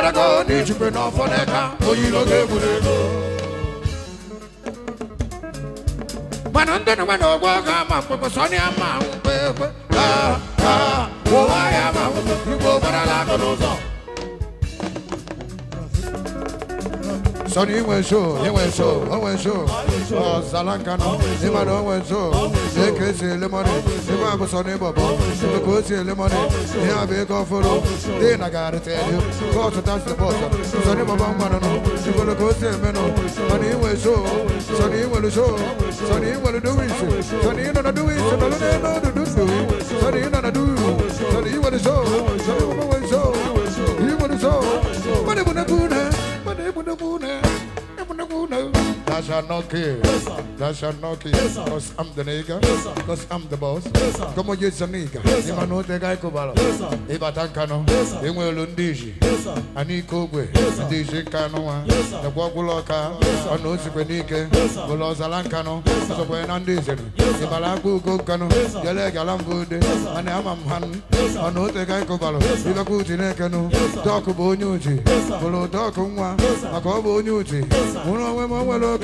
nwekwara ego n'ijikwe n'ọfọ n'eka oyilo ga-egwuru ego mana ndị na nwere ọgwọ ga ama mkpekpe sọnị ama mkpekpe ha ha ụwa ya ma igbo gbarala aka n'ụzọ Son Iwenso, Iwenso, Iwenso, Zalankano, Imano Iwenso, Ekesi Lemoni, Imabu Son Ibobo, Ibukusi Lemoni, Ihabi Koforo, then I gotta tell you, go to touch the bottom, Son Ibobo Mano, Ibukusi Meno, Son Iwenso, Son Iwenso, Son Iwenso do it, Son Iwenso do it, Son Iwenso do it, Son Iwenso do it, Son Iwenso do it, Son Iwenso do it, I shall not kill. Yes, I shall not kill. Cause I'm the nigga. Cause I'm the boss. Come Yes, Kama use a nigga. Yes, Ima no te you kubala. Yes, Iba tankano. Yes, Imwe lundiji. Yes, Ani kubwe. Yes, Ndiji kano wa. Yes, Nagwa guloka. Yes, Ano sikwe nike. Yes, Guloza lankano. Yes, Aso kwe you Yes, Iba langu kukano. Yes, Yele galambude. Yes, Ane ama mhan. Yes, Ano te gai kubala. Yes, Iba kuti nekano. Yes, Doku bo nyuji. Yes, Gulo doku you Yes, Makobo nyuji. Yes, Uno we mwelo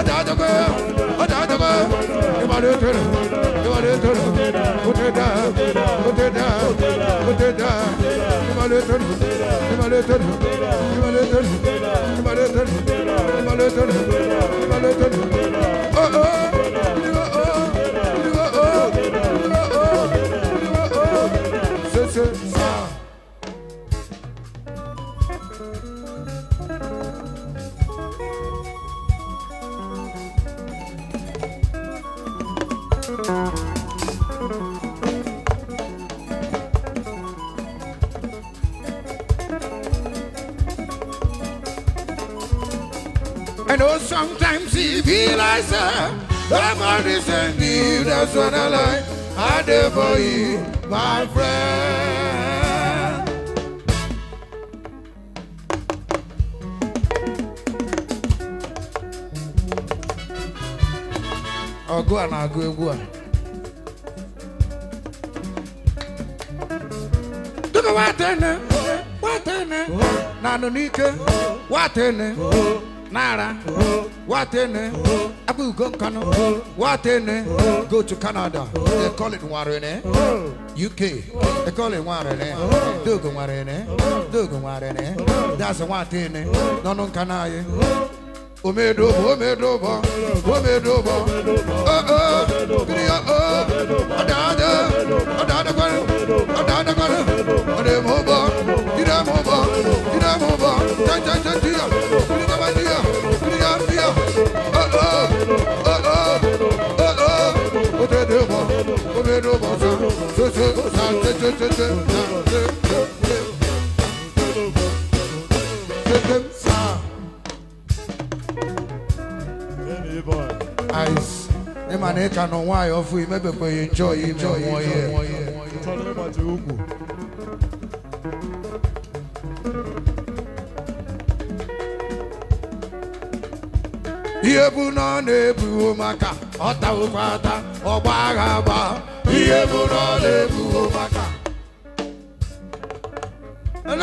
adájọgbé adájọgbé ìmàlẹ́ tẹ̀lé ìmàlẹ́ tẹ̀lé òtẹ̀dá òtẹ̀dá òtẹ̀dá ìmàlẹ́ tẹ̀lé ìmàlẹ́ tẹ̀lé ìmàlẹ́ tẹ̀lé ìmàlẹ́ tẹ̀lé ìmàlẹ́ tẹ̀lé ìmàlẹ́ tẹ̀lé. I know sometimes he feel like, sir, the man is a new, that's what I like. I do for you, my friend. Oh, go on, I'll go, on. Look at what I done, what I done, not on Nika, what I done. Naira, Watene, Abu Gonkano, Watene, go to Canada, they call it Warene, UK, they call it Warene, Dugan Warene, Dugan Warene, that's a Watene, Nonon Canaye. Omedobo, Omedobo, Omedobo, oh oh, Giri oh oh, Adada, Adada Gwaru, Adada Gwaru, Ademobo, Idamobo, Idamobo, Tan Tan Tan Ice. Ẹ ma na ịka nọ nwayọọ fụ ime bèbè yi njọ yi njọ yi njọ yi. Ihe bụ na ọ na-ebuwo maka ọ tawụkwa ata ọgba agha gbaa ihe bụ na ọ maka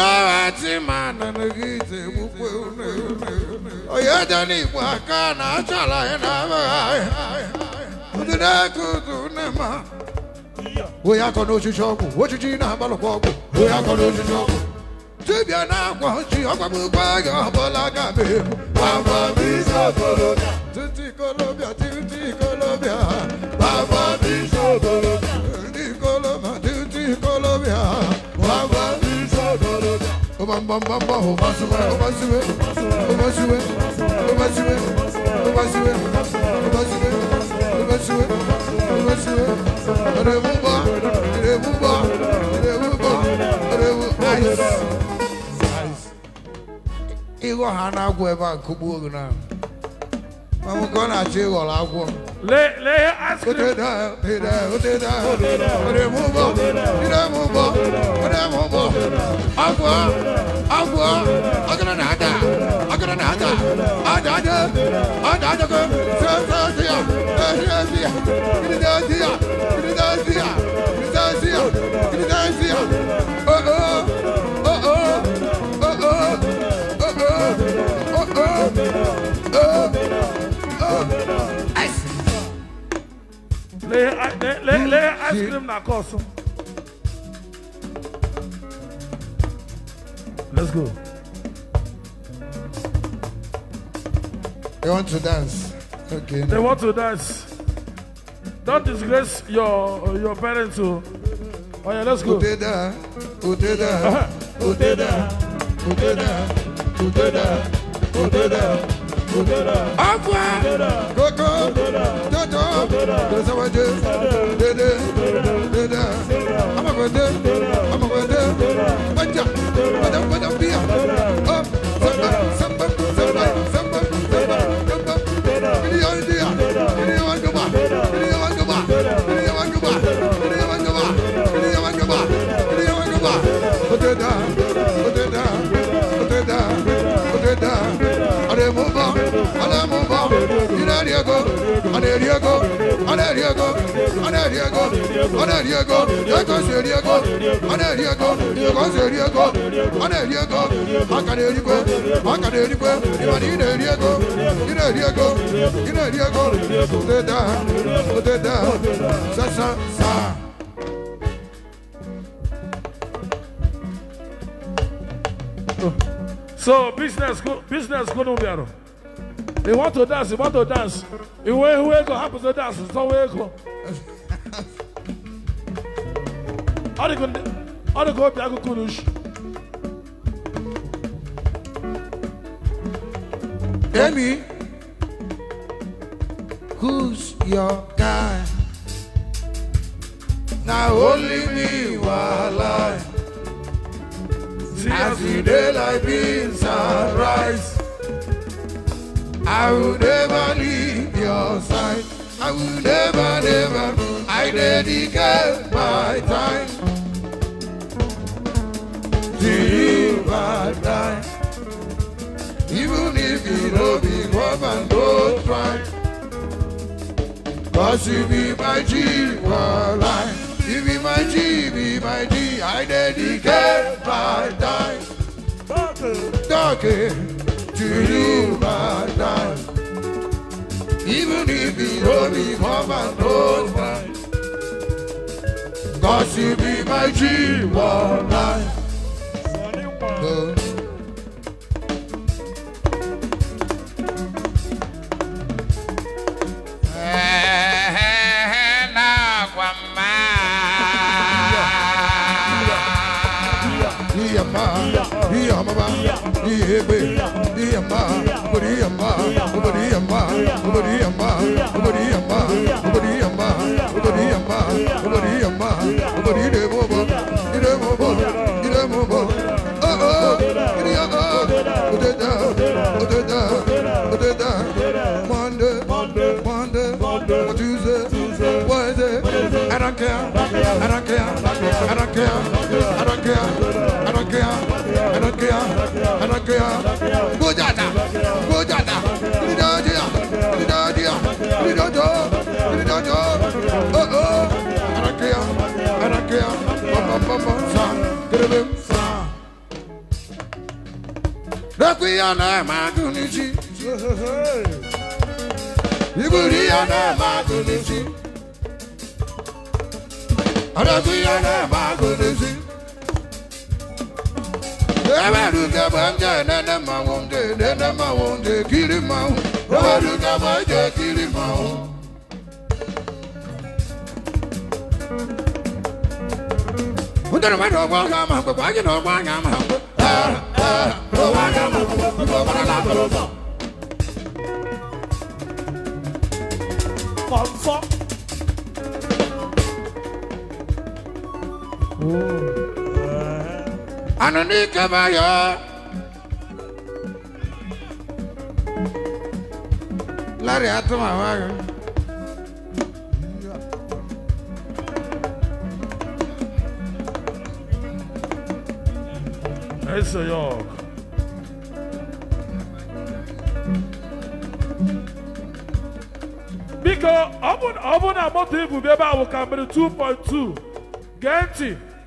nara tima na megide gbukwe une une onye dị n'igbo aka na-achala anyị na abụghị ndị na-eke udu nne ma onye akọ n'ochichi ọgwụ ochichi na-agbalụkwa ọgwụ onye akọ n'ochichi ọgwụ dibịa na-akwa ji ọgbagbukwa gị ọbụla ga-abịa ebu bambambamba o basuwe o basuwe o basuwe o basuwe o basuwe o basuwe o basuwe o basuwe rebuba rebuba rebuba rebuba ice igo hana gwe ba kubu na I'm gonna do all I want. Let let ask you. Put it down, put it down, put it down, put it down, put it move up, put it move up, put it move up. Agua, agua, agora nada, agora nada. Adada, adada go. Sensazia, sensazia, sensazia, sensazia, sensazia, sensazia. lee ice cream na aka ọsọ let's go. They want to dance. Okay. They no. want to dance. Don't disgrace your your parents. Oh, oh yeah, let's go. Uteda, Uteda, Uteda, Uteda, Uteda, Uteda ọ̀pọ̀ kókó tótó tẹ̀síwájú dédé dédé ọmọkùnrin dé ọmọkùnrin dé ọjà ọjà ọjà. ọ̀nà èrí ego ọ̀nà èrí ego ọ̀nà èrí ego ego sì èrí ego ọ̀nà èrí ego ego sì èrí ego ọ̀nà èrí ego maka na erikwe maka na erikwe ìmọ̀nà ị na-eri ego ị na-eri ego ị na-eri ego odeda odeda sasa saa. So business business kunu bịara. You want to dance, you want to dance. You way who go happens to dance, so way go. Other go, other go, Biago Kurush. Amy, who's your guy? Now only me while I as the daylight beams arise. I will never leave your side. I will never, never. I dedicate my time to you, my time. Even if you know me, come and go try. Cause you be my G, my life. You be my G, be my G. I dedicate my time. Talking. Talking. to you, my God. Even if you don't become an old man, God should be my G one night. Yebe, Yamba, Ubari Yamba, Ubari Yamba, Ubari Yamba, Ubari Yamba, Ubari Yamba, Ubari Yamba, Ubari Yamba, Ubari Debobo, Debobo, Debobo. Oh oh, Idiya oh, Odeda, Odeda, Odeda. Monday, Monday, Monday, Tuesday, Tuesday, Wednesday. I don't care, I don't care, I don't care, I don't care. anakea anakea bujata bujata nidodia nidodia nidodo nidodo oh oh anakea anakea papa papa sa kerebe sa Requia na magunici Iburia na magunici Requia na magunici Ebaruka banja nana mawonde nana mawonde kiri mawu Ebaruka banja kiri mawu. Udara ma dogwa ga ma ko pa ji dogwa ga ma ko. Ah ah dogwa ga ma ko ko ma la ko lo. Confort. Oh. Anoni Kabayọ. Lárí àtúmọ̀ àwọn ayọ̀. Eso yok. Biko, ọ bụ na moto ibu bụ ebe ahụ ka mere 2.2 gee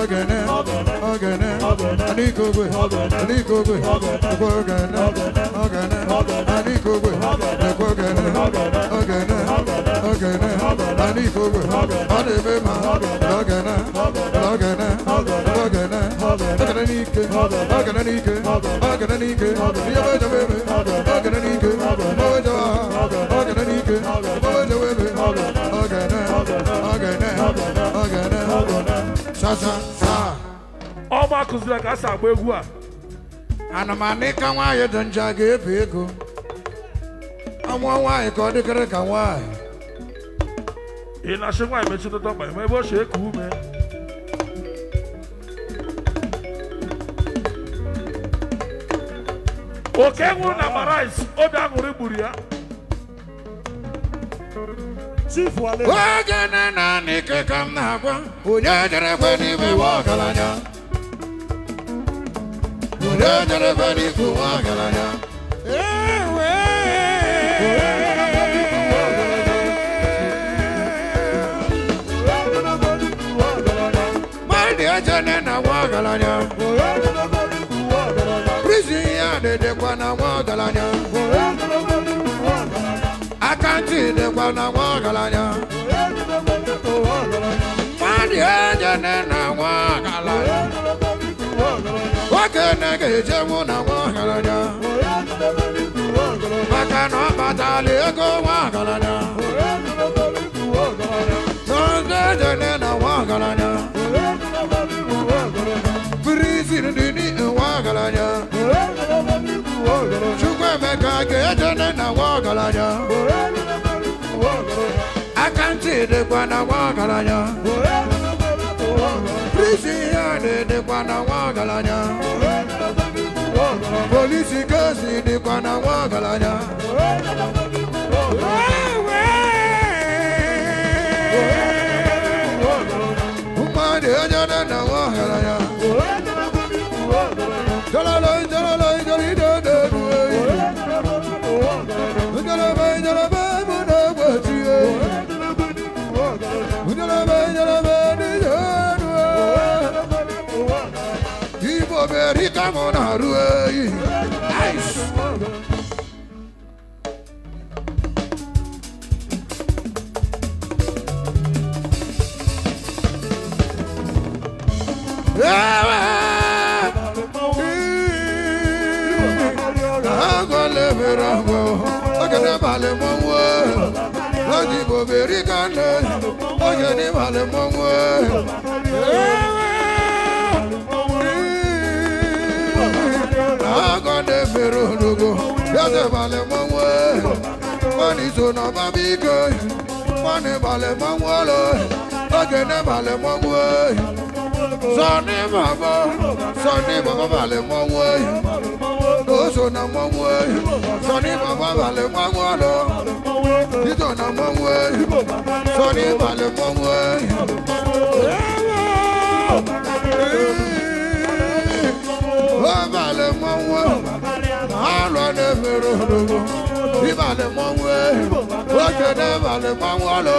ọ̀gẹ̀nẹ̀ ọ̀gẹ̀nẹ̀ àníkògbè àníkògbè ẹ̀kọ́ ọ̀gẹ̀nẹ̀ ọ̀gẹ̀nẹ̀ àníkògbè ẹ̀kọ́ ọ̀gẹ̀nẹ̀ ọ̀gẹ̀nẹ̀ ọ̀gẹ̀nẹ̀ àníkògbè ọ̀dẹ̀mẹ̀ mà ọ̀gẹ̀nẹ̀ ọ̀gẹ̀nẹ̀ ọ̀gẹ̀nẹ̀ ọ̀gẹ̀nẹ̀ níke ọ̀gẹ̀nẹ̀ níke ọ̀gẹ̀nẹ̀ níke ìyẹ́wé jẹ́ wẹ́wẹ́ ọ̀gẹ̀nẹ̀ níke ọ̀wé jẹ́ wá ọ̀gẹ̀nẹ̀ níke ọ̀wé jẹ́ wẹ́wẹ́ ọ̀gẹ̀nẹ̀ ọ̀gẹ̀nẹ̀. ọma kụziri ka a si agba egwu a anụmanụ ịka nwaanyị dị njọ a ga-ebi ego Ọnwụ nwaanyị ka ọ dịkịrị ka nwaanyị ị na-achị nwaanyị metụtata ọkpa ebe o si ume oke nwụrụ na maraịs, obi aṅụrị gburu ya Chief Oge na na n'ike ka m na-agwa. Onye jere kwe n'ime nwa ọgaranya. Onye jere kwe n'ikwu nwa ọgaranya. Mmadụ eje ne na nwa ọgaranya. Prison ya na-edekwa na nwa ọgaranya de kwa na wakalanya Kandi enye nena wakalanya Wakene keje muna wakalanya Makano batali eko wakalanya Sonde ne na wakalanya Frizin dini wakalanya Wakalanya emeka ga-eje ne na nwa ọgaranya akantị dịkwa na nwa ọgaranya prisi yadị dịkwa na mane oye ni male mongwe agọde fere ologo yọde male mongwe mani so na ọba mi ke mani male mongwe lo oge ne male mongwe sọ ni mabọ sọ ni mabọ male mongwe so na mo mu e so ni baba ba le mo mu lo ito na mo mu e so ni ba le mo mu e o ba le mo mu a lo ne fero lo ibale mo mu e o ke ne ba le mo mu lo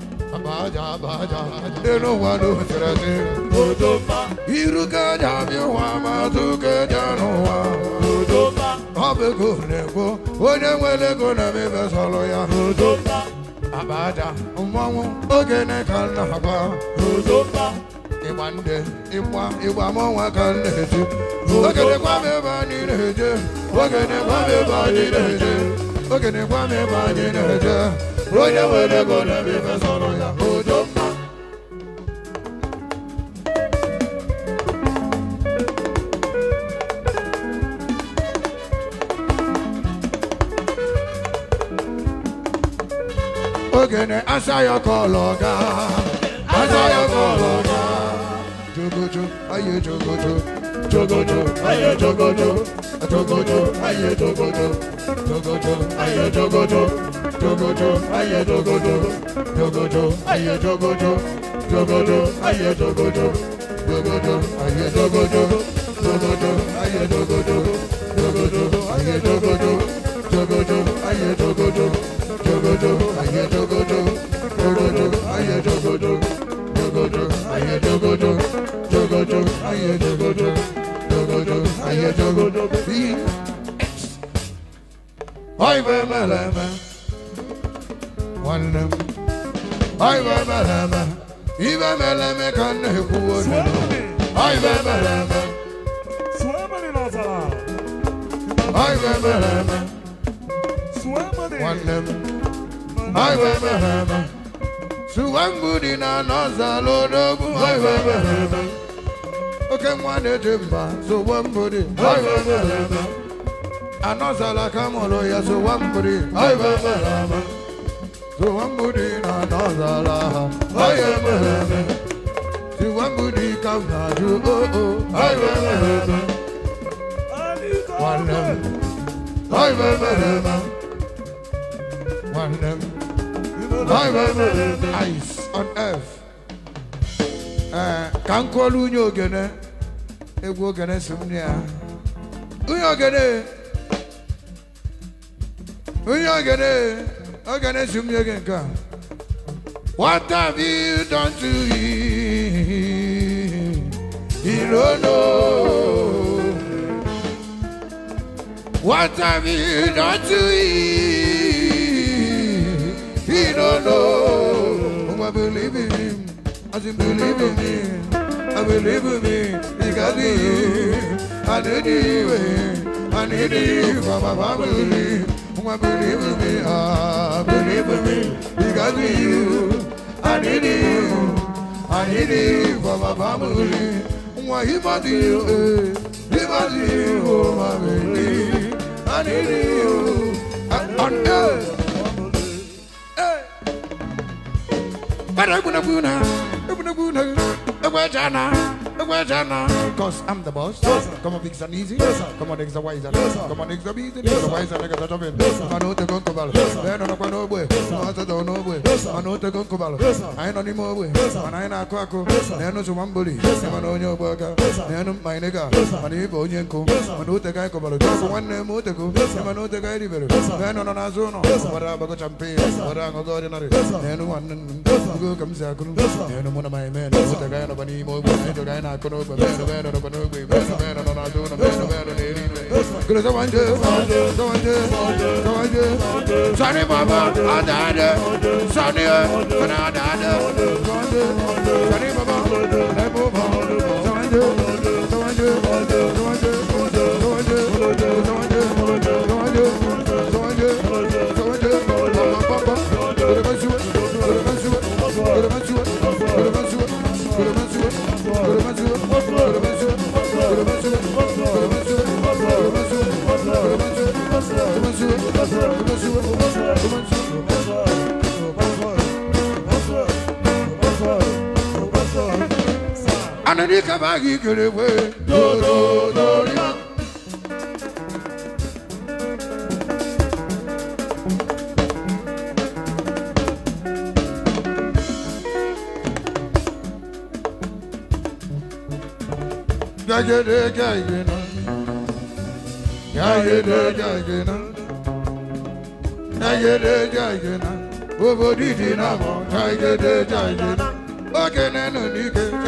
Abaja, abaja, deno wano tirate. Odoba. Iruka jami wa matuke jano wa. Odoba. Abe kuneko, onye mwele kuna mibe solo ya. Odoba. Abaja, mwangu, ogene kana hapa. Odoba. Ịgba nde, ịgba, ịgba mọnwa ka m na-eje. Ogene gwa m ebe anyị na-eje. Ogene gwa m ebe anyị na-eje. Ogene gwa m ebe anyị na-eje onye nwere ego na-eme ife sọrọ ya odo mma ogene asa ya kọlọ ọga asa ya kọlọ ọga jogojo aye jogojo jogojo aye jogojo jogojo aye jogojo jogojo aye jogojo dogodo ayé dogodo dogodo ayé dogodo dogodo ayé dogodo dogodo ayé dogodo dogodo ayé dogodo dogodo ayé dogodo dogodo ayé dogodo dogodo ayé dogodo dogodo ayé dogodo dogodo ayé dogodo dogodo ayé dogodo dogodo ayé dogodo bí. vem, vem, vem wannam ay babalama ibabalame kanne kuwono ay babalama ay babalama wannam ay babalama suwambudi na nọzalodogu ay babalama oke nwane dị mba suwambudi ay babalama anọzala kamolo ya suwambudi ay babalama Suwambudina Nazala Hayemeheme Suwambudi Kaunaju Oh Oh Hayemeheme Wannem Hayemeheme Wannem Hayemeheme Ice on earth ka m kụọla unye ogene ya unye ogene Okay, let's see me again, come. What have you done to him? He don't know. What have you done to him? He don't know. Oh, I believe in him. I just believe in him. I believe in him. Because of him. I need it. Eh. I need it for my family. Oh, my, believe in me, ah, believe in me, because of you, I need you, I need you for my family. Oh, I give back you, eh, give back you, oh, my baby, I need you, and, and, eh, Hey, But I'm gonna go now, I'm gonna go now, I'm gonna go now. Cause I'm the boss. Yes, sir. Come on, fix and easy. Yes, sir. Come on, next the wiser. Yes, sir. Come on, next the busy. Yes, sir. Wiser, next the travel. Yes, sir. I know the concubal. Yes, sir. Then on the no boy. Yes, sir. I don't know boy. Yes, sir. I know the concubal. Yes, sir. I know the more boy. Yes, sir. And I know Quaco. Yes, sir. Then to one bully. Yes, sir. I know your burger. Yes, sir. Then my nigga. Yes, sir. And he go yanko. Yes, sir. I know the guy cobble. Just one name more to go. Yes, sir. I know the guy river. Yes, sir. Then on an azono. Yes, sir. What I'm a champion. Yes, sir. What I'm a god in a. Yes, sir. Then one. Yes, sir. Go comes out. Yes, sir. Then one of my men. What the guy of an emo. I don't na kono kábàgì kèrèwé dòdò lórí mọ́. Jagede jagena, jagede jagena, jagede jagena, bobo didi na mo, jagede jagena, bakene no nike.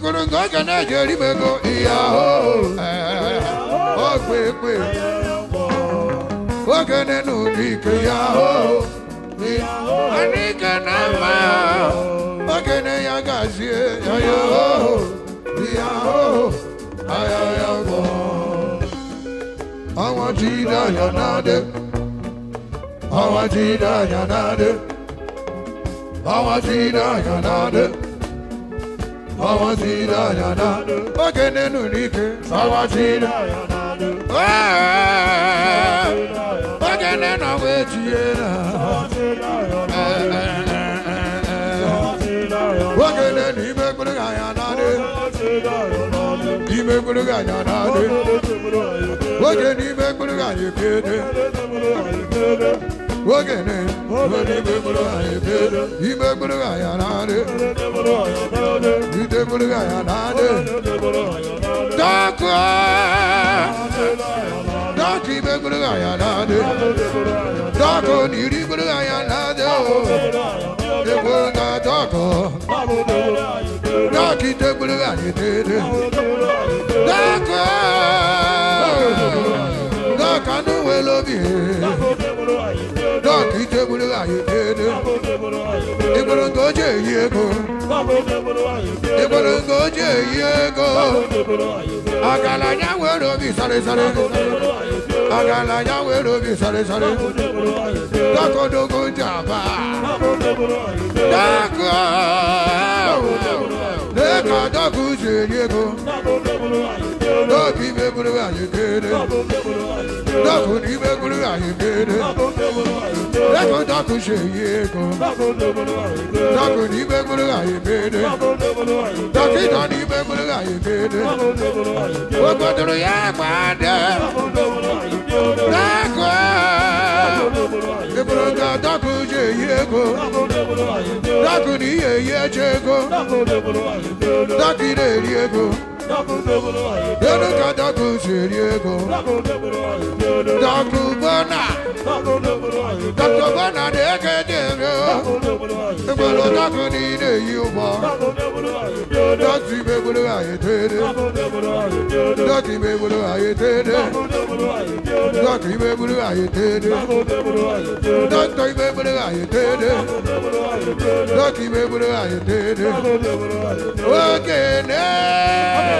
goro ngo ga na jeri mego iya ho eh. o oh, gbe gbe o ga ne nu ni ke ya ho ani ga na ma o ga ne ya ga si ya yo iya ho aya ya go awa ti da ya na de awa ti da ya na de awa ti da ya na de Sawajira yanadu Ogene n'ike Sawajira yanadu Ogene na wetie na Ogene n'ime gburu ga yanadu Ime gburu ga yanadu Ogene n'ime gburu ga yekede Wagene, Wagene, you make me a yanade, you take me a yanade, Daka, Daki, make me a yanade, Daka, you need me a yanade, they were not Daka, Daki, take me a yanade, Daka, Daka, no, I love you. ki tebulu ayi dede ibolo ngoje yego ibolo ngoje yego agala nyawero bi sare sare agala nyawero bi sare sare dako dogo jaba dako lẹ́ka dọ́kù ṣèyíko dọ́kì mẹ́kúrú àyíkéde dọ́kù ní mẹ́kúrú àyíkéde lẹ́ka dọ́kù ṣèyíko dọ́kù ní mẹ́kúrú àyíkéde dọ́kì náà ní mẹ́kúrú àyíkéde gbogbo dúró yẹ pàdé lẹ́kọ̀ọ́ mẹ́kúrú dọ́kù. yego dakuni ye yechego dakine yego Dodo dodo seriego. Dodo bona. Dodo bona deke deke. Ebolo dodo ni ne yuba. Dodo me bolo aye tere. Dodo me bolo aye tere. Dodo me bolo aye tere. Dodo me bolo aye tere. Dodo me bolo aye tere. Oge ne.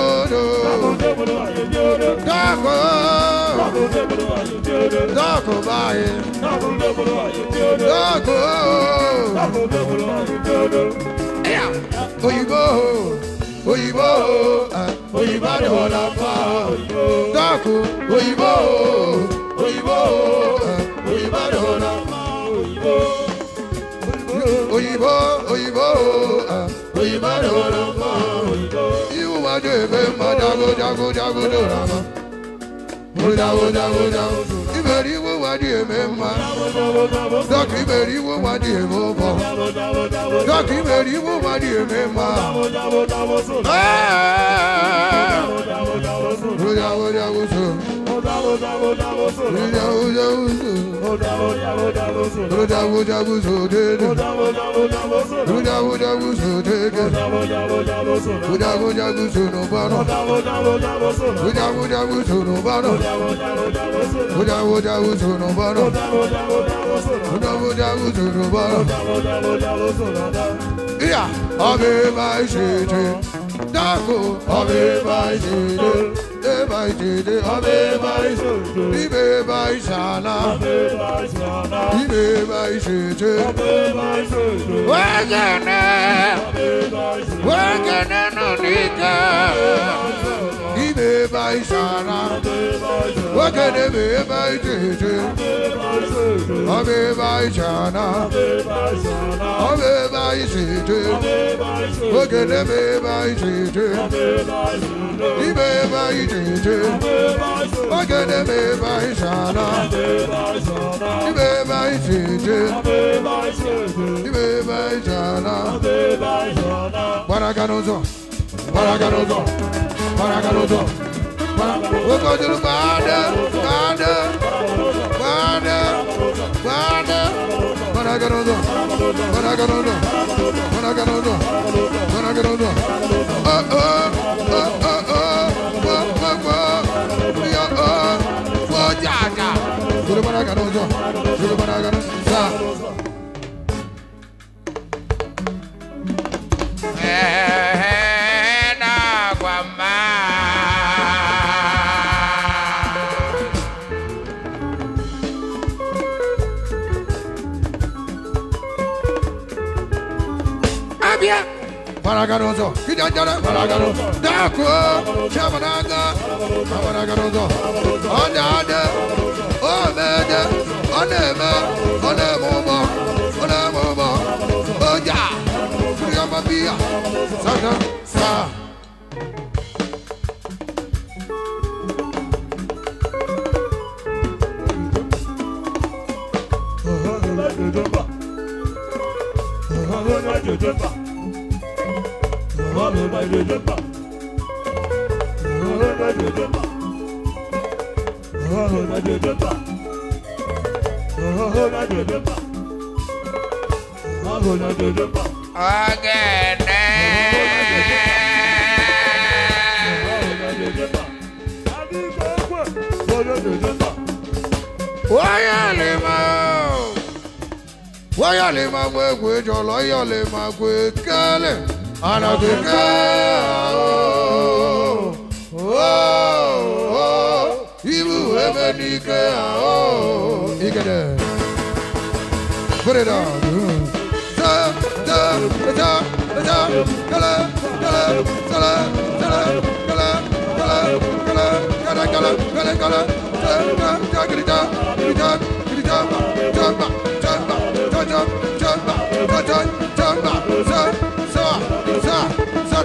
dákò dákò báyìí dákò òyìnbó òyìnbó òyìnbó ni wọ́n la fa dákò òyìnbó òyìnbó òyìnbó ni wọ́n la fa òyìnbó òyìnbó òyìnbó òyìnbó ni wọ́n la fa ma do ebe ma dago dago dago do ra ma. Mo dago dago dago do. Iberi wo wa di eme ma. Dọ́kì iberi wo wa di eme bọ̀. Dọ́kì iberi wo wa di eme ma. Mo dago dago so. Yeah, I'll be my shitty. Dako Abe Bai Dede De Bai Dede Abe Bai Dede Ibe Bai Sana Abe Bai Sana Ibe Bai Dede Abe Bai Dede Wagana Ibe Bai Sana Abe Bai Dede Wakane me bai tete Abe bai chana Abe bai sete Wakane me bai tete Ibe bai tete Wakane me bai chana Ibe bai tete Ibe bai chana Barakanuzo Barakanuzo Barakanuzo we gotta know, but I gotta know, but I gotta know, but I Oh, oh, oh, oh, oh, oh, oh, oh, oh, oh, oh, ja, ja. To the Father, gotta know, to Yeah. Paragaroso, Kidandara, Paragaroso, Dako, Chabananga, Paragaroso, Anada, Omeda, Onema, Onemoma, Onemoma, Oja, Kriamabia, Sana, Sa. Jojumba wáyà lè máa gbé gbé jọ lè máa gbé kálẹ̀. on a good girl. Oh, oh, you ever need Oh, you get it. Put it on. jump, jump, jump, jump, jump, jump, jump, jump, jump, Jump, jump, jump, jump, jump, jump, jump, jump, jump, jump, jump, jump,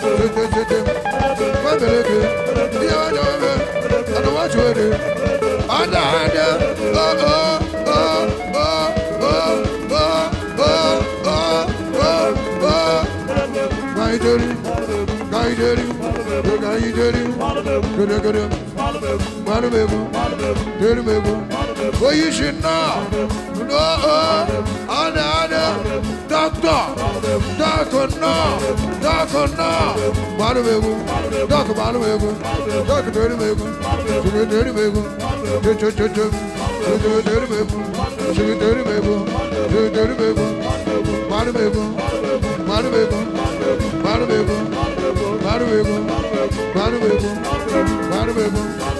Ekechete, Mameleke, Yadome, Anawachwede, Anahanda, oh, oh, oh, oh, oh, oh, oh, oh, oh, oh, Gaideri, Gaideri, Gaideri, Gaideri, Gaideri, Marbebu, Dürbebu, Koyuşunna, Noa, Ana Ana, Dakta, Dakonna, Dakonna, Marbebu, Dak Marbebu, Dak Dürbebu, Sürü Dürbebu, Çö çö çö çö, Sürü Dürbebu, Sürü Dürbebu, Sürü Dürbebu, Marbebu, Marbebu, Marbebu, Marbebu, Marbebu, Marbebu, Marbebu,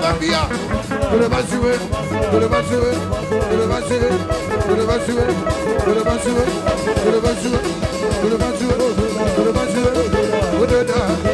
mafia Tú le vas a subir, tú le vas a subir, tú le vas a subir, tú le vas a subir, tú le vas a subir, tú le vas a subir, tú le vas a subir, tú vas tú vas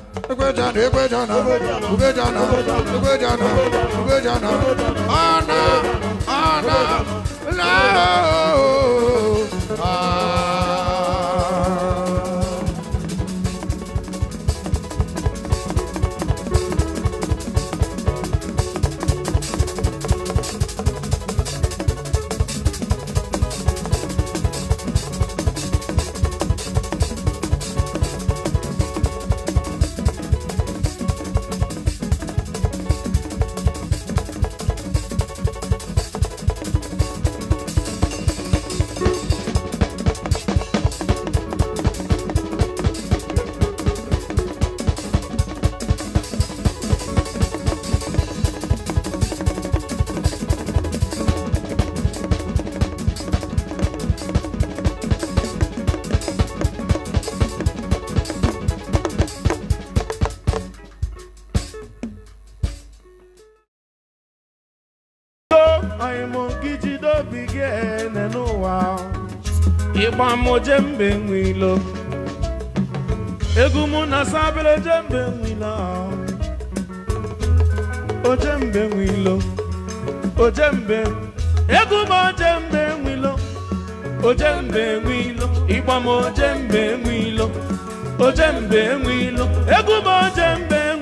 Ekwejana, Ekwejana, Ekwejana, Ekwejana, Ekwejana, Ana, Ana, Lord. jembe wilo, egwu mụ na sabere jembe nwilo o jembe wilo, o jembe egwu jembe o jembe wilo. ịgba m o jembe wilo, o jembe wilo, egwu jembe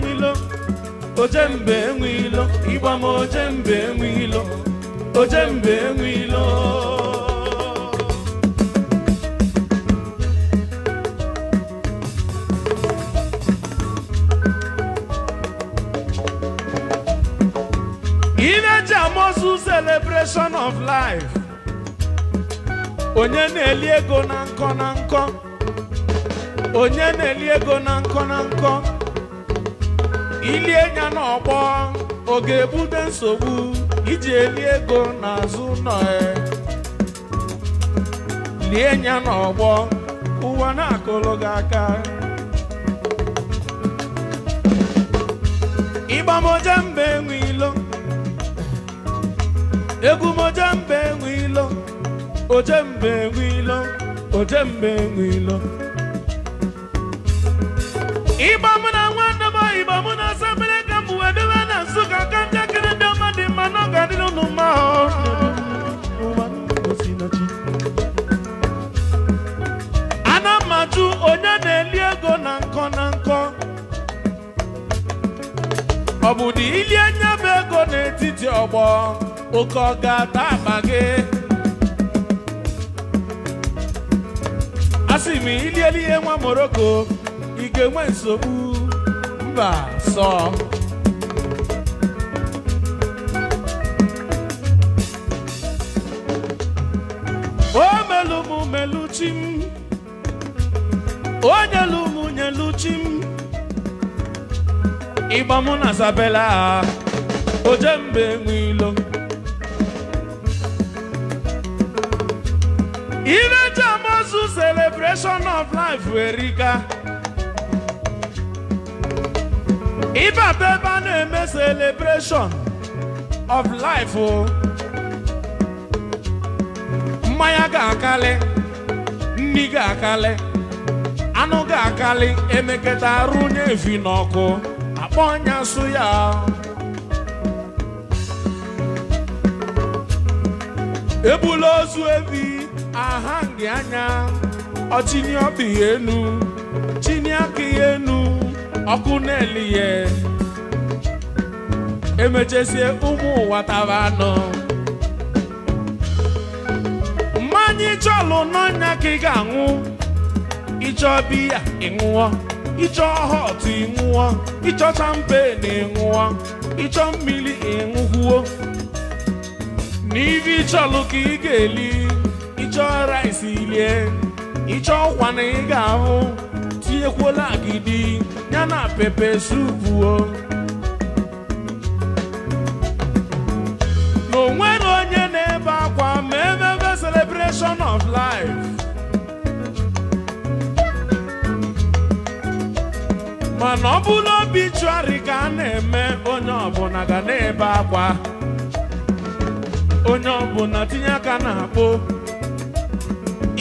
o jembe wilo. ịgba m o jembe wilo, o jembe wilo. onye na-eli ego na nkọ na nkọ onye na-eli ego na nkọ na nkọ ilie nya n'ọgbọ ọ ga-ebute nsogbu iji eli ego n'azụ nọ lie nya n'ọgbọ ụwa na-akụlụ gị aka ịgbamoje mba enwe ilo ojembe enwe ilo ojembe enwe ilo ịgba mụ na nwa m igbo mụ na asabere ka m wee bịa na nsukka ka njakịrị ndị ọma dị mma na ọ ga-adịrị ụnụ mma ana m ajụ onye na-eli ego na nkọ na nkọ ọ bụ dị ili anya bụ ego n'etiti ọgbọ oke ọ ga-ata akpa gị ma ilieli ihe nwa Moroko, ị ga-enwe nsogbu mba sọ o melu m melu chi m o nyelu m nyelu chi m ịgba m na sabela oje mbe nwe ilo Jesus celebration of life erika If ebe a na-eme celebration of life oh. Maya gakale, niga nri ga-akali anụ ga-akali emeketa arụ onye efi n'ọkụ akpọ ọnya aha gị anya ọchịnye ọbịa enu chinye aka ya enu ọkụ na-eli ya emechesie ụmụ ụwa tara anọ mmanya ịchọlụ n'ọnya ka ị ga-aṅụ ịchọ biya ịṅụọ ịchọ họt ịṅụọ ịchọ na ịṅụọ ịchọ mmiri ịṅụkwuo n'ife ịchọlụ ka ị ga-eli ịchọ rice ilie ịchọ ọkwa na ị ga-ahụ tinyekwuola agidi ya na pepe supuo na onwere onye na-ebe akwa ma ebe celebration of life mana ọ bụrụ obituari ka a na-eme onye ọbụla ga na-ebe akwa onye ọbụla tinye aka na akpo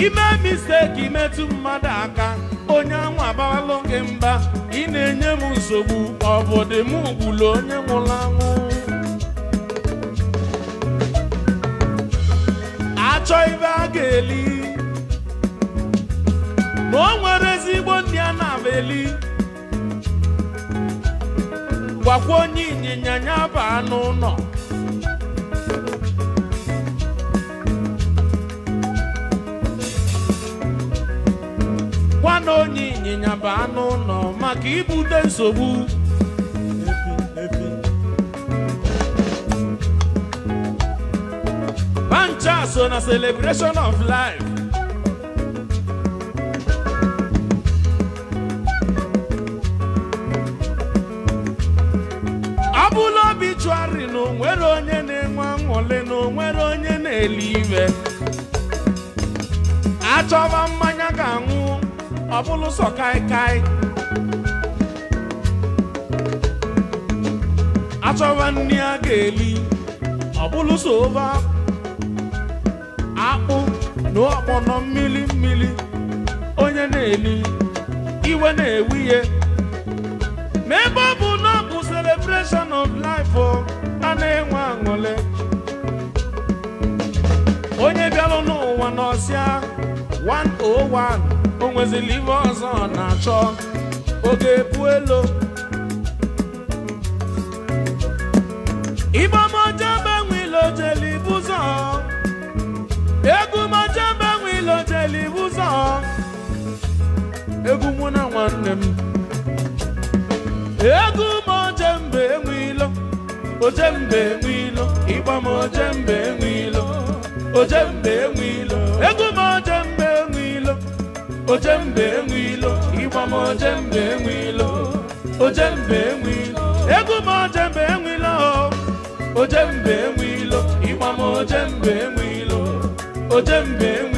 ime misteki metụ mmadụ aka onye anwụ abawalụ gị mba ị na-enye m nsogbu ọ m gburu onye nwụrụ anwụ achọ ibe a ga-eli ma o nwere ezigbo ndị a na eli gwakwa onye ịnyịnya ya bụ anụ ụlọ na onye ịnyịnya bụ anụ ụlọ maka ibute nsogbu bancha so na celebration of life ọ bụla obi chụgharị na onwere onye na-enwe anwụle na onwere onye na-eli iwe achọba mmanya ga-anwụ ọ bụrụ kai kaikai achọwa nri a ga-eli ọ bụrụ akpụ na nọ mmiri mmiri onye na-eli iwe na ewu ihe. ma ebe ọ bụ na bụ celebration of life a na-enwe aṅụle onye bịara n'ụwa n'ọsịa 101 o live ife ọzọ ọ na-achọ oge epu elu ibe ọmọjọ mgbe nwe ilojeli bụzọ egwu mọjọ mgbe nwe ilojeli bụzọ egwu mụ na nwanne m egwu mọjọ mgbe enwe ilo ojembe enwe ilo ịgba m ojembe enwe ilo ojembe enwe egwu ojembe enwe ilo ịgba m ojembe enwe ilo ojembe enwe ilo egwu m ojembe enwe ilo ojembe enwe ilo ịgba m ojembe enwe ilo ojembe enwe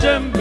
cem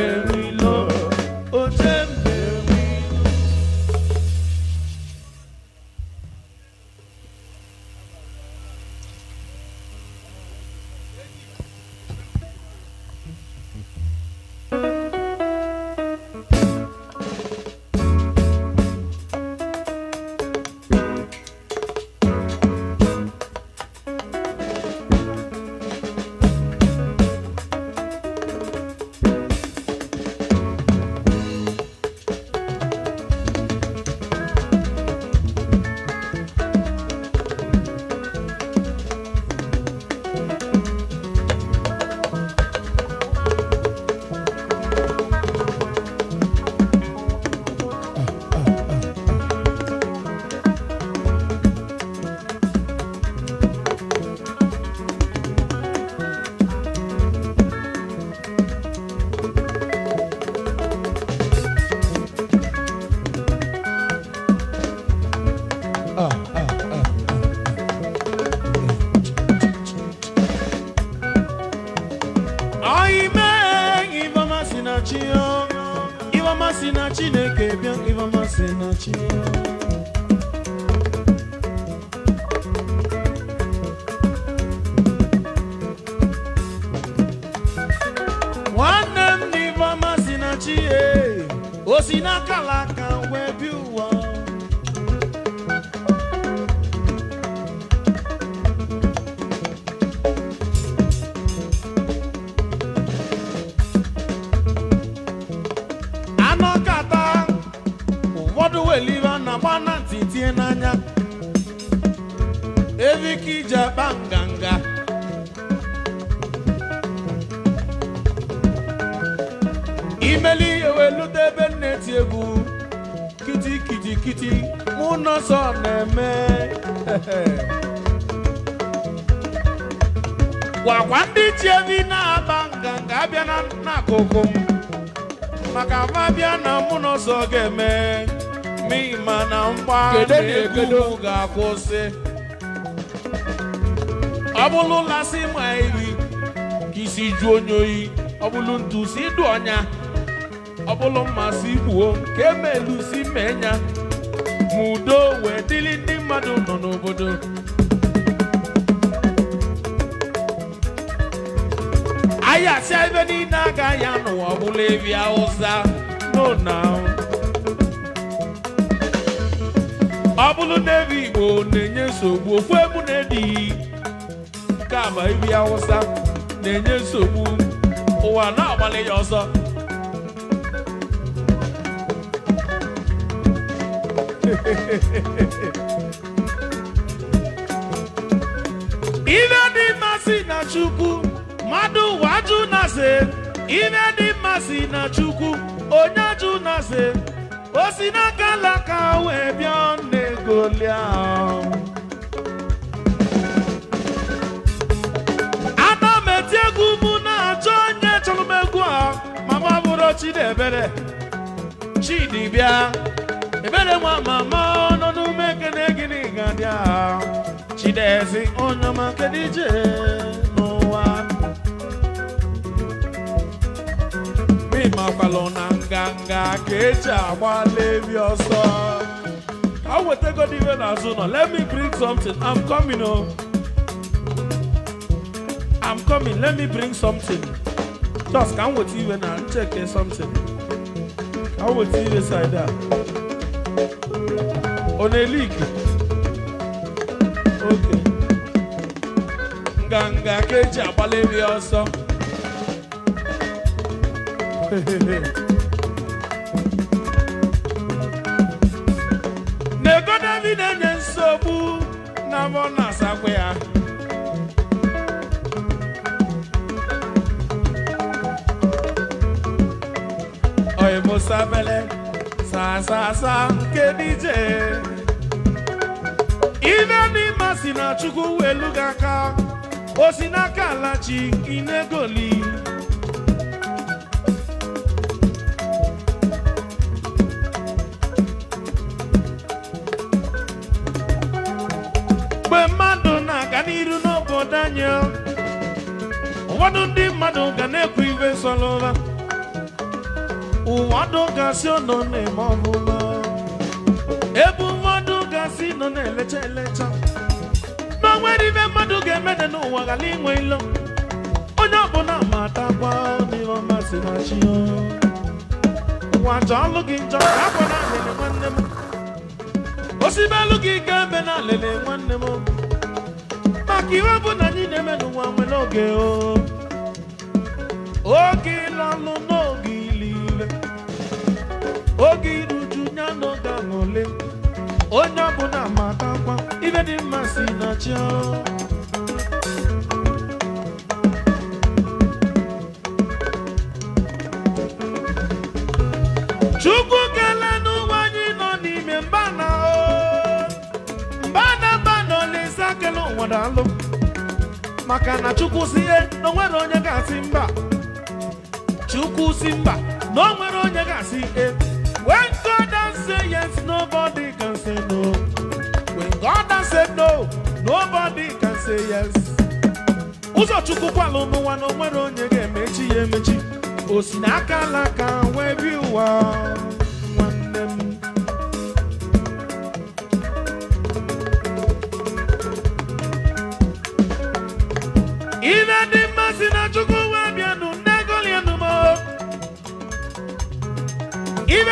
kedu ụmụ ga-akwụsị ọ ma ka isi ju onye oyi ọ bụlụ ntu si ọnya ọ bụlụ mmasị gbuo ka emelu si menya ma wee dịrị ndị mmadụ nọ n'obodo ayasịa ebe niile agaghị anụ ebi awụsa ahụ. ọ bụrụ na ebe igbo na-enye nsogbu okwu egwu na-edighị nke ama ebi awụsa na-enye nsogbu ụwa na-agbalị ya ọsọ ihe dị mma na chukwu mmadụ ụwa ajụ na se ife dị mmasị na chukwu onye ajụ na osinaka wee bịa ọnụ egolia ana m eti egwu mụ na-achọ onye chọrọ m egwu a mama bụrụ Chidiebere Chidi bịa ebere nwa mama nọ n'ume ekene gịnị ga dị aha Chidezi onye ọma kedije makwalụ na nganga ka eji agbala ebi ọsọ ka wetagodi iwe n'azụ nọ let me bring something i'm coming o i'm coming let me bring something just ka m weta iwe na ncheke something ka m weta iwe side a ọ na-ele ike oke nganga ka eji agbala ebi ọsọ n'ego na enye nsogbu na mọ musa asakwa ya oimosabele sasasa nke dije ibe n'ime si na chukwu welu gị aka o si n'aka alachi inegoli ụfọdụ ndị mmadụ ga na-ekwu ibe solụla ụwadụ gasị nọ na-eme ọbụla ebe ụfọdụ gasị nọ na-elecha elecha na nwere ibe mmadụ ga-emede n'ụwa ghara inwe ilo onye ọbụla matakwa n'ihe ọma si na chi ụwa jọọlụ gị njọ ka akwa na alele nwanne m osibelu gị ga-ebe na alele nwanne m maka iwe bụ na anyị na-eme n'ụwa nwere oge o oge ịlalụ n'oge ile oge iruju ya n'oge aṅụle onye ọbụla matakwa ibe dị mma si na chi chukwu kele n'ụwa anyị nọ n'ime na mbana mbana olise ake n'ụwa daalụ maka na chukwu si ihe na onye ga-asị mba chukwu si mba na o nwere onye ga-asị e when God has said yes nobody can say no when God has said no nobody can say yes ụzọ chukwu kwalụ n'ụwa na o nwere onye ga-emechi ya emechi o si n'aka alaka wee bi ụwa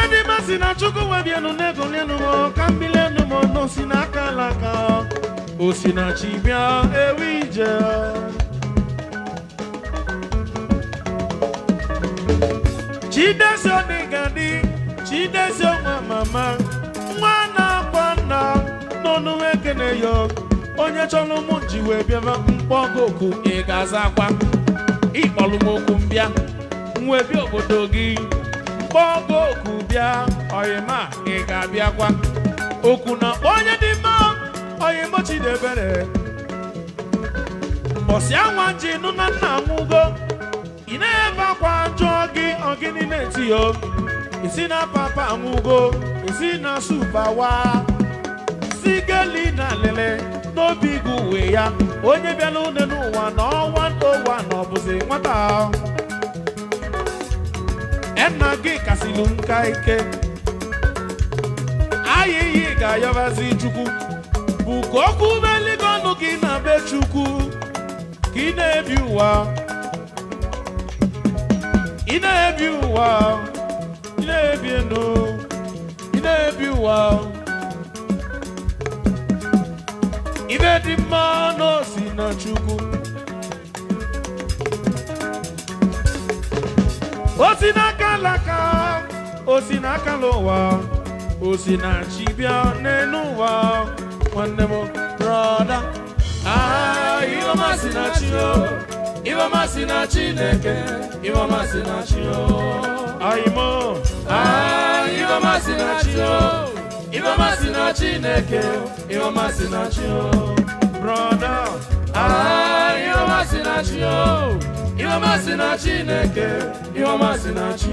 ebe masị na chukwu webienu n'ego n'elu ka mbili enu m ọnụ si n'aka alaka osi si na chi bịa ewu ije chidesi ọdị gadị chidesi mama nwa na-akpa nna n'ọnụ ekene ya onye chọrọ ụmụ ji wee bịaba mkpọgo oku ị ga-aza akwa ịkpọlụ m okwu mbịa nwebia obodo gị mkpọgo oku bịa ọyịma ị ga-abịakwa okwu na onye dị mma oyimo chidebere mbọsị anwa ji nụ na nna nwugo ị na-ebe akwa jụọ gị ọgịnị na-etiyo isi na papa nwugo isi na supawa si geli na lele n'obi gị uwe ya onye bịala une n'ụwa na ọnwa ntowa na ọbụzi nwata enna gị kasịlụ nka ike ayịyị ga-ayọbazi chukwu bụ ka okwu beligo na be chukwu ka ị na-ebi ụwa ị na-ebi ụwa ị na-ebi ndụ ị na-ebi ụwa ibe dị mma n'osi na chukwu alaka o si n'aka n'ụwa o si na chi bịa n'elu ụwa nwanne m brọda aha iheọma si na chineke iheọma si na chi o ayimo aha iheọma si na chineke iheọma si na chi o brọda aha iheọma ihe ọma si na Chineke ihe ọma si na Chi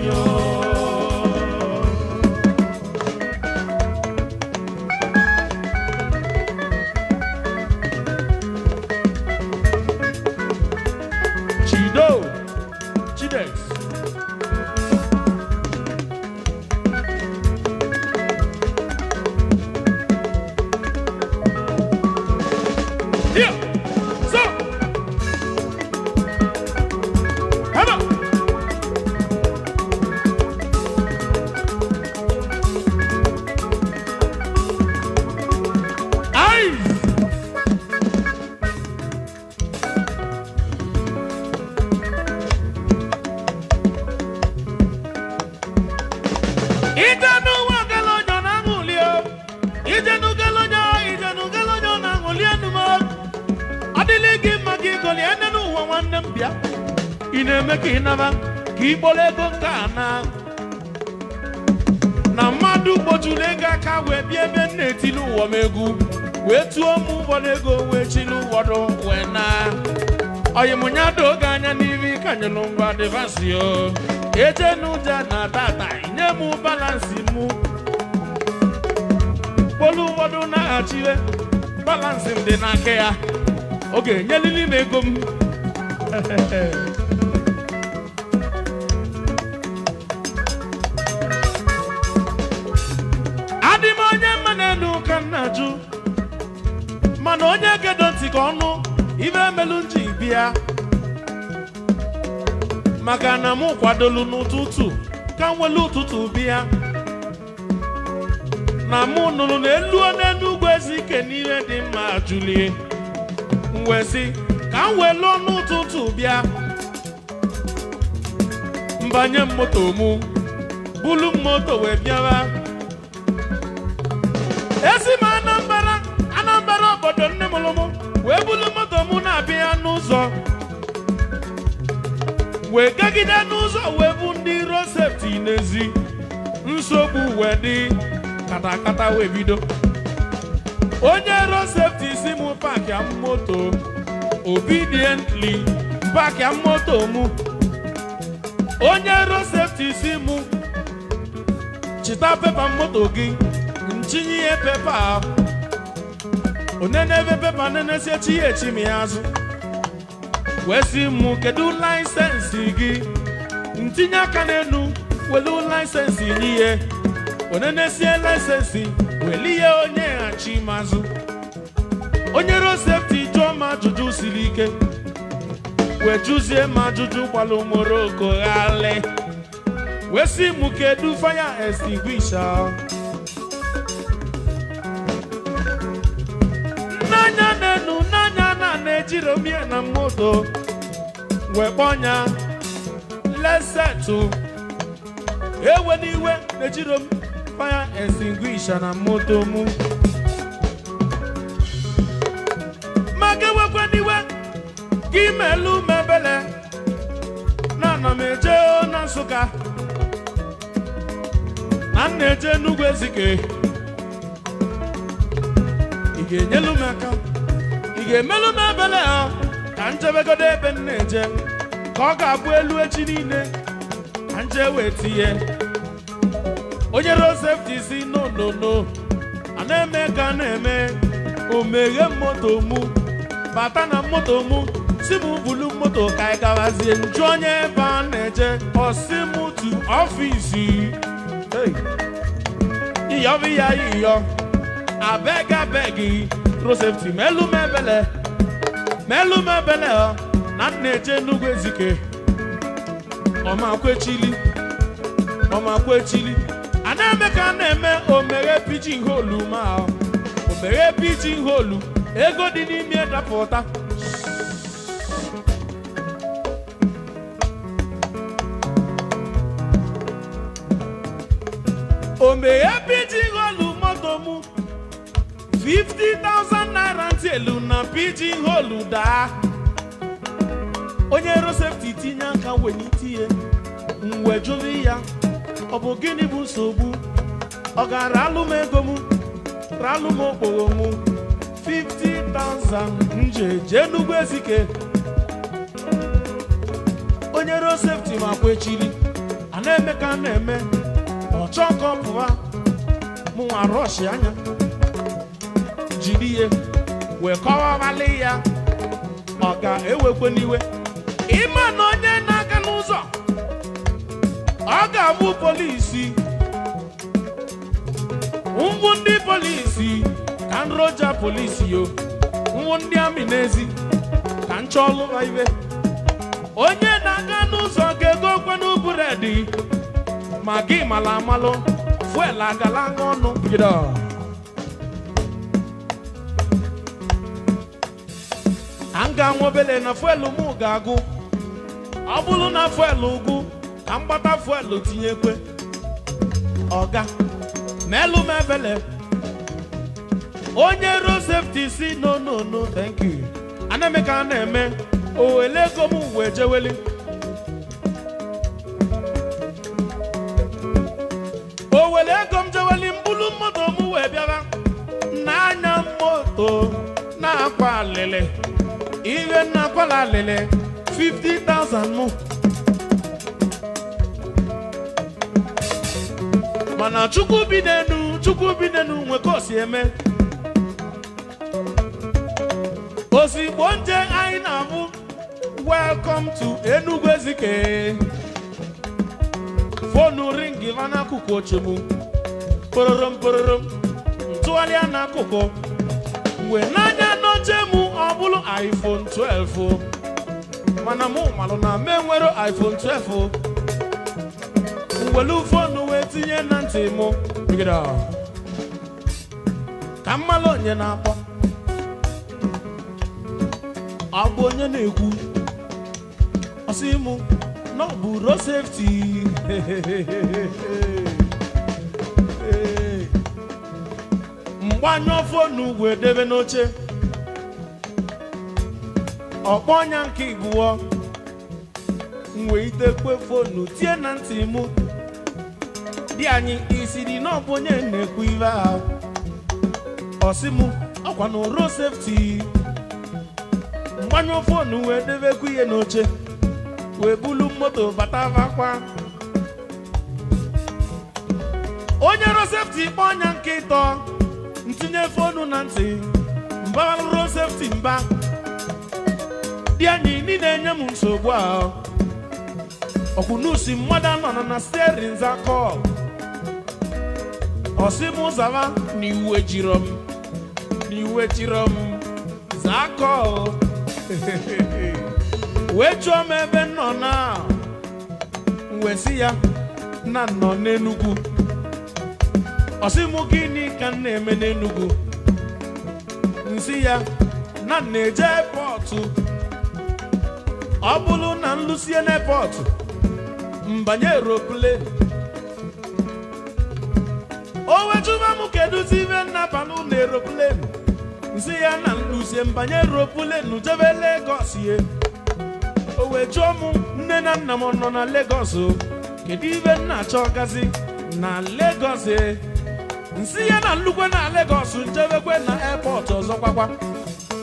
balansi o eje n'ụja na tata nye m balansi mụ mkpolu ụfọdụ naghachiwe balansi m dị n'aka ya oge ga-enyelili m ego m adị m onye mma n'elu ka m na mana onye gedo ntị ka ọnụ ibe emelu nji bịa maka na m kwadolu n'ụtụtụ ka m ụtụtụ bịa na mụ nụrụ na elu n'elu ugwu ezike ike dị mma julie mwezi ka m ọnụ ụtụtụ bịa mbanye m moto mụ bulu moto wee bịawa esi m Anambra Anambra obodo nne mụrụ mụ wee bulu moto mụ na-abịa n'ụzọ wee gagide n'ụzọ wee bụ ndị sefti n'ezi nsogbu wee dị katakata wee bido onye sefti si m pakia moto obediently pakia moto mụ onye ro sefti si mụ, chịta pepa moto gị nchinye pepa ahụ onenebe pepa nenesie chi ya echim ya azụ wee sị m laịsensị gị ntinye aka n'elu welu laịsensị n'ihe onenesie laịsensị weli ihe onye ghachi mazụ onye ro sefti jụọ ma ajụjụ siri ike wee jụzie ma ajụjụ gbalụ moroko ghalị wee si mụ kedu faya jiri omie na moto wekponya lesetu ewe n'iwe ejiro m fire extinguisher na moto mu maka ewekwa n'iwe ka imelu mebele, na ana m eje na nsụka na m na-eje n'ugwu ezike ị ga-enyelu m aka ị ga-emelụ m ha ka njebegodo ebe m eje ka ọ ga-abụ elu echi niile ka nje wee tinye onye Rozef ji si a na-eme ka na-eme omeghe moto mụ bata na moto mụ si m bulu moto ka ị gawazie nju onye ebe a na-eje ọsi m tu ọfisi iyọbi ya iyọ abeg abeg micro safety melu m ebele melu oh. na nna eje nnukwu ezike ọmakwechili ọmakwechili a na-eme ka na-eme omere pijin holu ma oh. omere holu ego dị n'ime dapụta 50,000 naira ntị elu na pidgin holu daa onye rosepti tinye aka wenye tinye mwe jụrụ ya ọ bụ gịnị bụ nsogbu ọ gara alụ m ego m ralụ m okporo m 50,000 nje jee n'ugwu ezike onye rosepti ma kwechiri a na-eme ka a na-eme ọchọ nke mụnwa rọshi anya jiri ihe wee kọwawalị ya ọ ga-ewekwe n'iwe ịma na onye na-aga n'ụzọ ọ ga-abụ polisi ngwụ ndị polisi ka nroja polisi yo ngwụ ndị amị n'ezi ka nchọlụma ibe onye na-aga n'ụzọ ga-ego kwenu buredi ma gị mala amalụ fuel agala aṅụ ọnụ a m ga obele na fuelu m ga-agụ ọ bụrụ na fuelu ugwu ka m gbata fuelu tinyekwe ọga melu m ebele onye ruo sefti si no no no thank you anemeka a na-eme owele ego m wee jeweli owele ego m jeweli mbulu moto m wee bịara n'anya moto na-akwa iwe nna kwala lele 50,000 mụ mana chukwu bidenu chukwu bidenu n'enu nwe ka o eme ozigbo nje anyị na-abụ welcome to Enugu Ezike fonu ringi ma n'akụkụ oche pororom pororom kpororom n'akụkụ wee n'anya ọ bụrụ iPhone 12 mana mụ malụ na m nwere iPhone 12 welu fonu wee tinye na ntị mụ ka mmalụ onye na-akpọ ọ bụ onye na-ekwu ọsị mụ na ọ bụ mgbanyụ fonu wee debe n'oche ọkpọ ọnya nke igbuo m wee itekwe fonu tie na ntị mụ di anyị isiri na ọbụ onye na-ekwu ive ha ọsị mụ ọkwa na sefti mgbanyụ fonu wee debekwa ihe n'oche wee bulu moto bata vakwa onye sefti kpọ ọnya nke ịtọ ntinye fonu na ntị mba rụrụ sefti mba dị enyi ndị na-enye m nsogbu a. ọkwụnusi mmadụ anọ na sterin zakọl ọsị m zaba na iwe jiro m na iwe jiro m zakọl wee chụọ m ebe nọ na wesi ya na nọ n'enugwu ọsị m gịnị ka m na-eme n'enugwu nsị ya na na-eje pọtụ ọ bụrụ na m lụsie n'epọtụ mbanye eroplen o wetuba m kedụzi ibe nnaba na eroplen nsị ya na nlụzie mbanye eroplen jebe Legọs ye o wejuo m nne na nna m nọ na Legọs kedu ibe nna achọ gazi na Legọs e nsị ya na nlukwe na Legọs njebekwe na epọtụ ọzọ gwagwa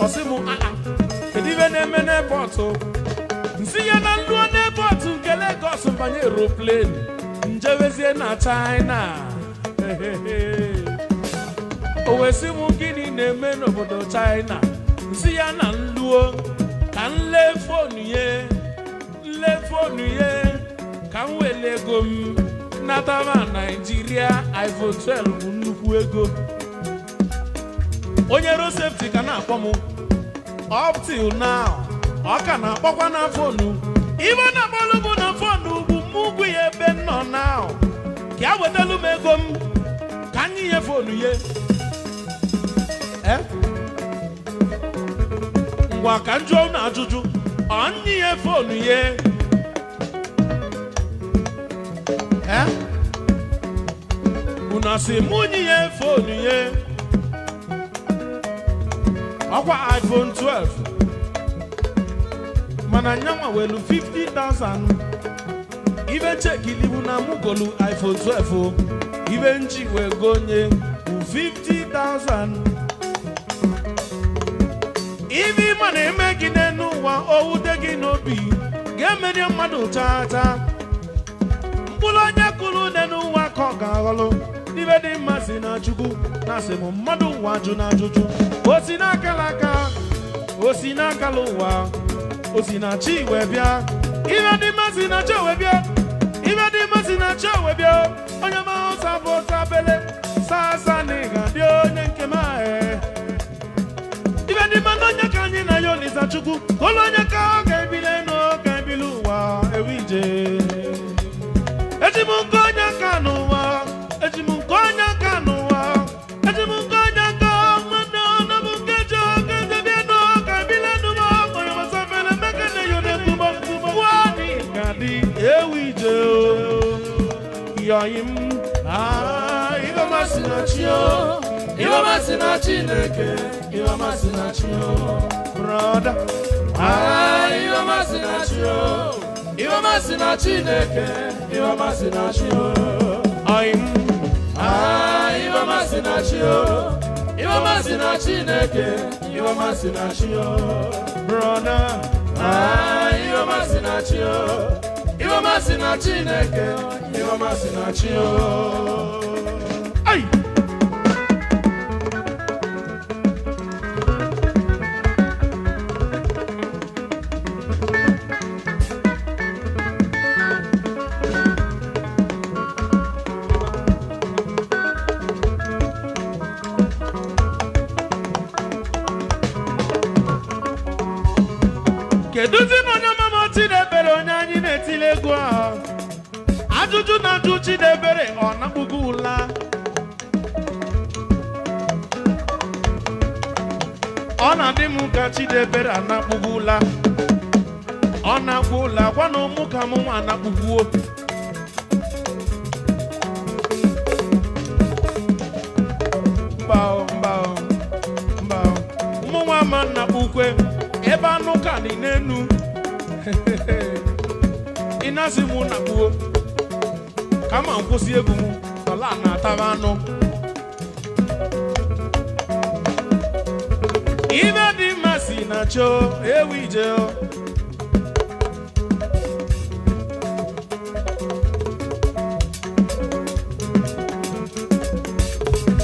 ọsị m aa ah, ah, kedu ibe na-eme n'epọtụ nsi ya na nluo n'ebọtụ nke Lagos mbanye eroplenu njewezie na China o m gịnị na-eme n'obodo China nsi ya na nluo ka nle ye ye ka m ego m Naijiria iPhone 12 bụ nnukwu ego onye rosepti ka na-akpọ m up till now ọ ka na-akpọkwa na fonu ibe na akpọlụ bụ na fonu bụ mụ ugwu ya ebe nọ na ka ya e wetalụ m ego m ka anyị nye fonu ye eh? ngwa ka m jụọ na ajụjụ ọ ye ya fonu eh? ye unu asị mụ nye ya fonu ye ọkwa iphone 12 mana nyama welu 50,000 ibe chekilibu na mugolu iPhone 12 ibe nji wee gonye 50,000 Ibi ịma na-eme gị n'elu ụwa owute gị n'obi ga-emeri mmadụ taata mkpụrụ onye kụrụ n'elu ụwa ka ọ ga-aghọlụ ibe dị mma si na chukwu na asị mmadụ ụwa jụ na ajụjụ o si n'akala aka o n'akala ụwa osinachi iwe bịa ibe dị mma sinachi owe bịa ibe dị mma sinachi owe bịa onye mahụ sabụ sabele sasa na ịga dị onye nke m ahụ ibe dị mma na onye ka anyị na ya olisa chukwu olu onye ka ọ ga-ebile n'ụka ebili ụwa ewe ije eji m nkọ masị na chineke iwe na chi brọda kedụzi m onye ọmụma Chidebere onye anyị na-etili egwu ahụ ajụjụ na-ajụ Chidebere ọ nakpugo ụla ọ na-adị m ka Chidebere anakpugo ụla ọ na-akpụ ụla gwa na ụmụ ka m nwa anakpugbuo mba mba mba mụ nwa ma nnakpukwe nenu inasi mu na kuo kama nkwụsị egwu m ọla na-ataba anụ ibe dị mma si na choo ewu ije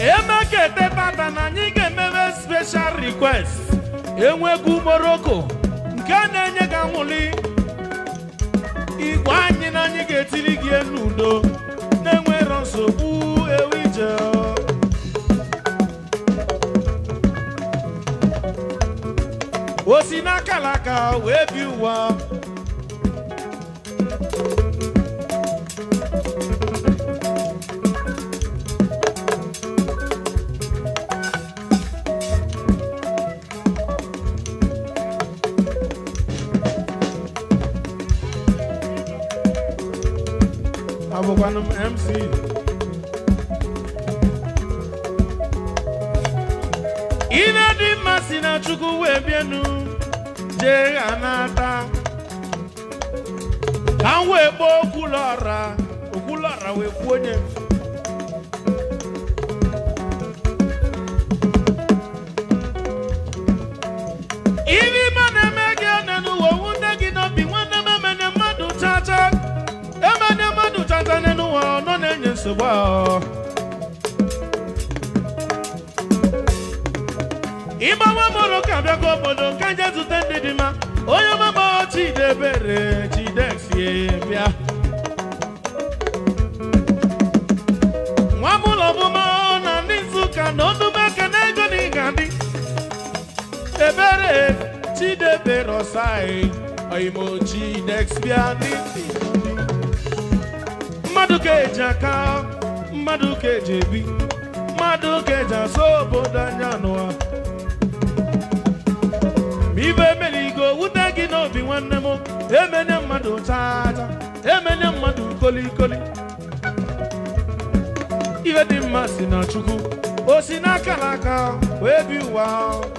eme ka etepata na anyị ga-emebe special request enwegwu morocco mụli igwe anyị na anyị ga-etiri elu udo na-enwero nsogbu ewu ije o si n'akalaka wee bi ụwa adịrọ saị oimoji next bianiti mmadụ ka eji aka mmadụ ka eji ebi mmadụ ka eji asọ obodo anya n'ụwa ma ibe mere igo wute gị n'obi nwanne m emenye mmadụ chacha emenye mmadụ kolikoli ife dị mma si na chukwu o si n'aka n'aka wee bi ụwa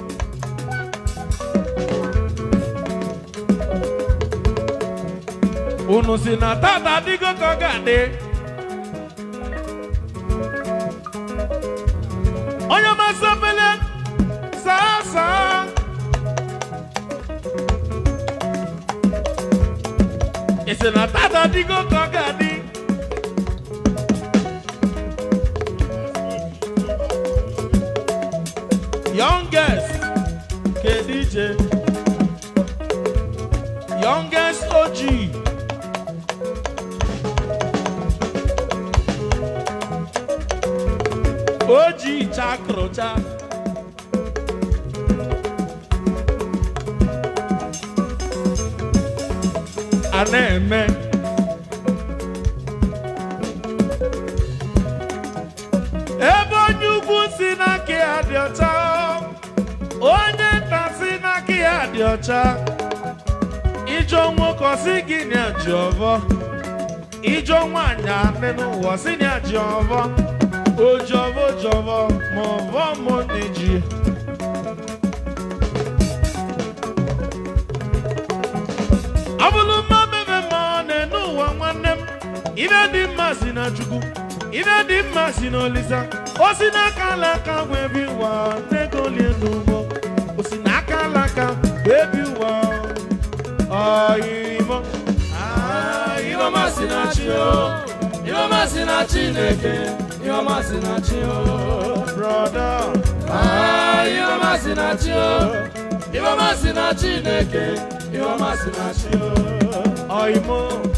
unu si na tata adịgo ka ọ ga-adị onye masị opele saa saa isi na tata adịgo ka ọ ga a Ebo eme ebe onye ugwu si n'aka ya ọcha onye nta si n'aka ya dị ọcha ijọ nwoke ọsị gị na ji ọvọ ijọ nwaanyị anị n'ụwa ọsị na ji ọvọ ojọvọ ojọvọ ma ọvọ mụ na ji Abuluma ife dị mma si na chukwu ife dị mma si na olisa o si n'aka alaka webi ụwa negolie n'ugbo o si n'aka alaka webi ụwa ọyịmọ ịhọma si na chi o ịhọma si na chineke ịhọma si na chi o brọda ịhọma si na chi o ịhọma si na chineke ịhọma si na chi o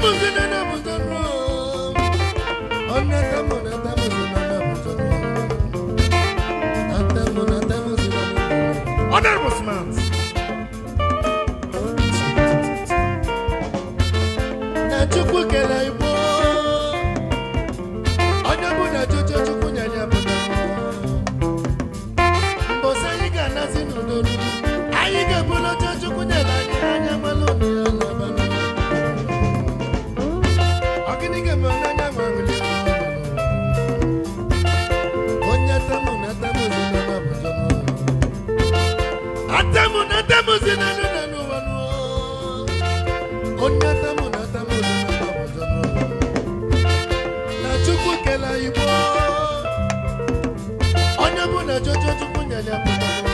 Bibles in the 那叫叫叫姑娘娘。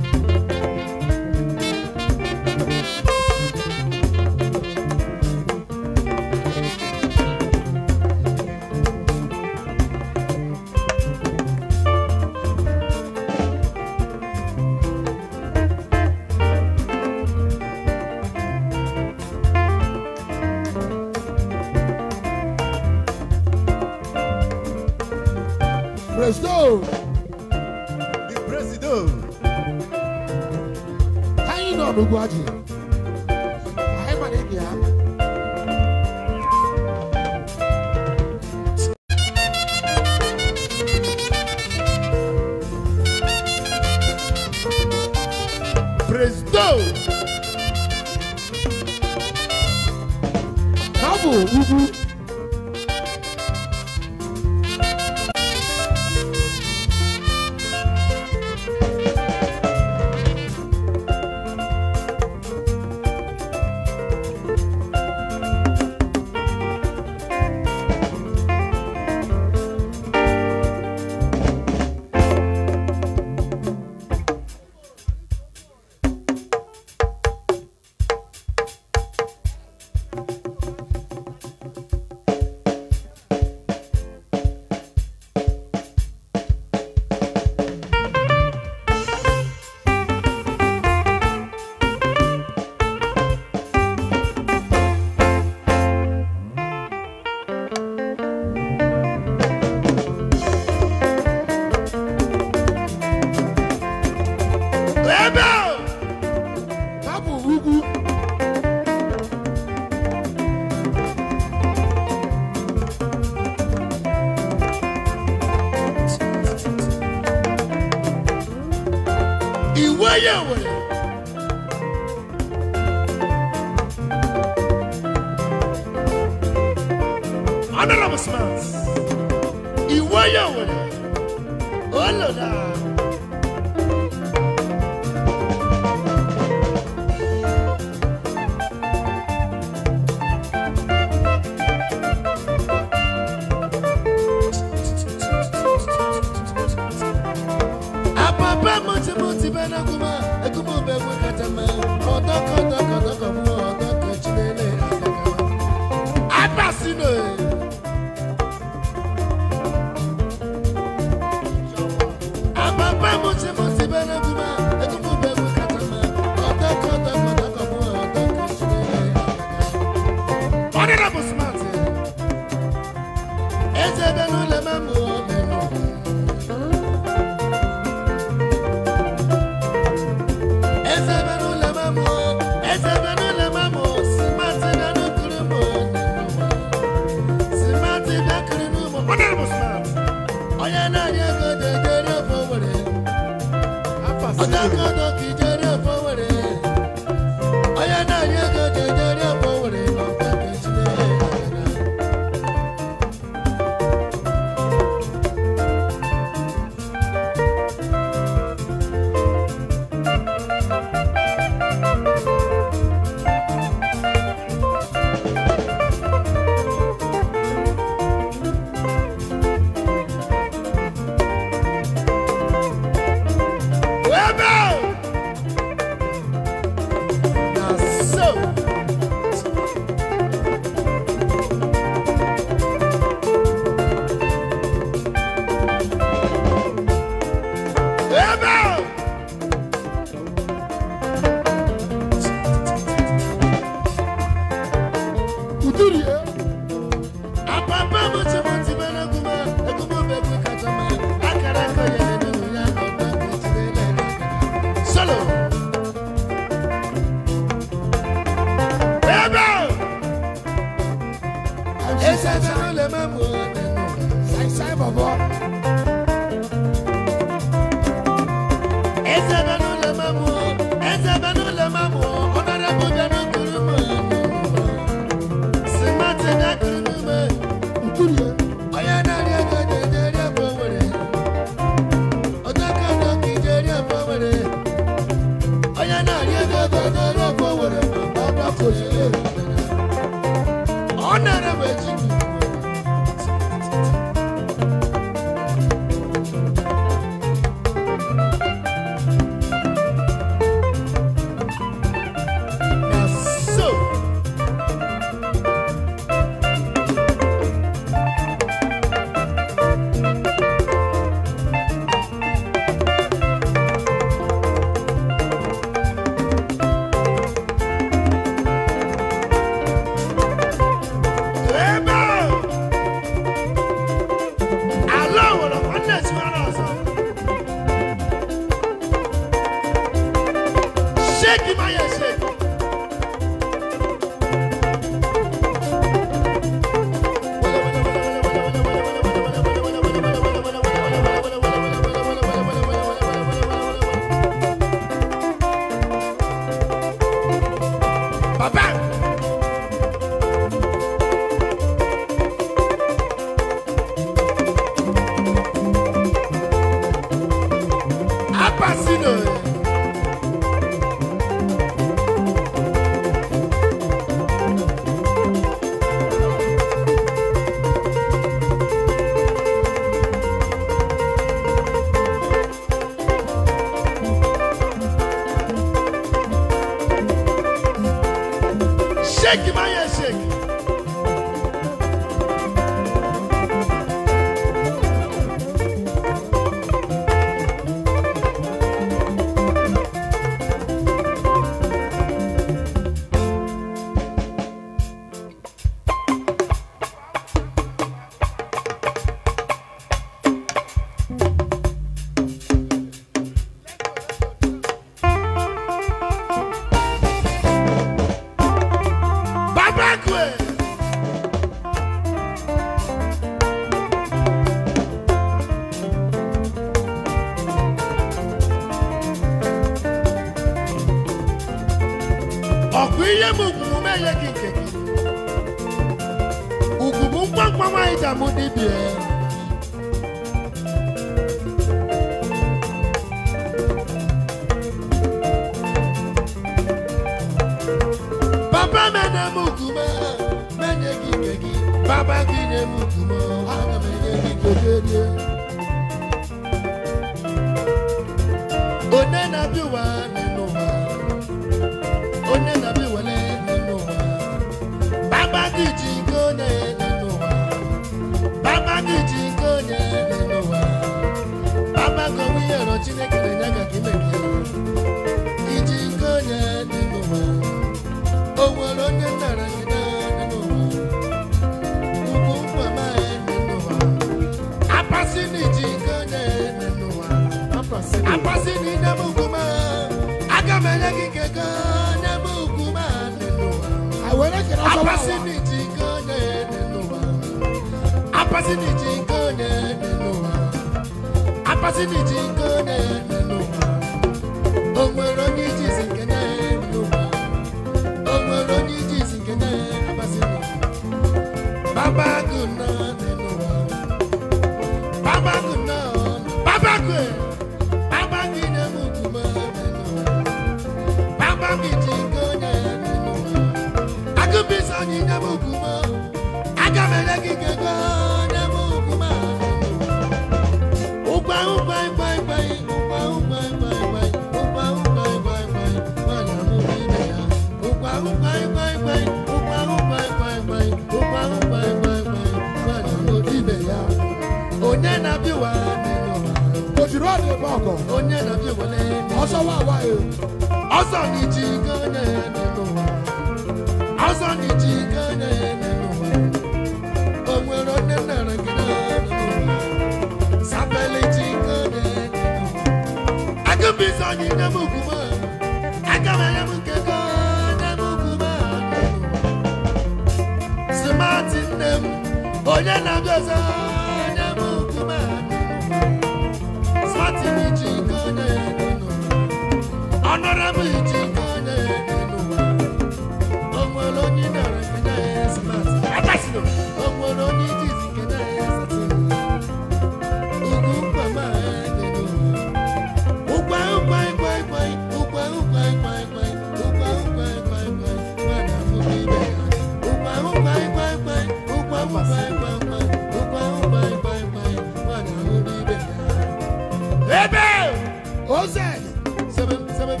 thousand. Seven, seven,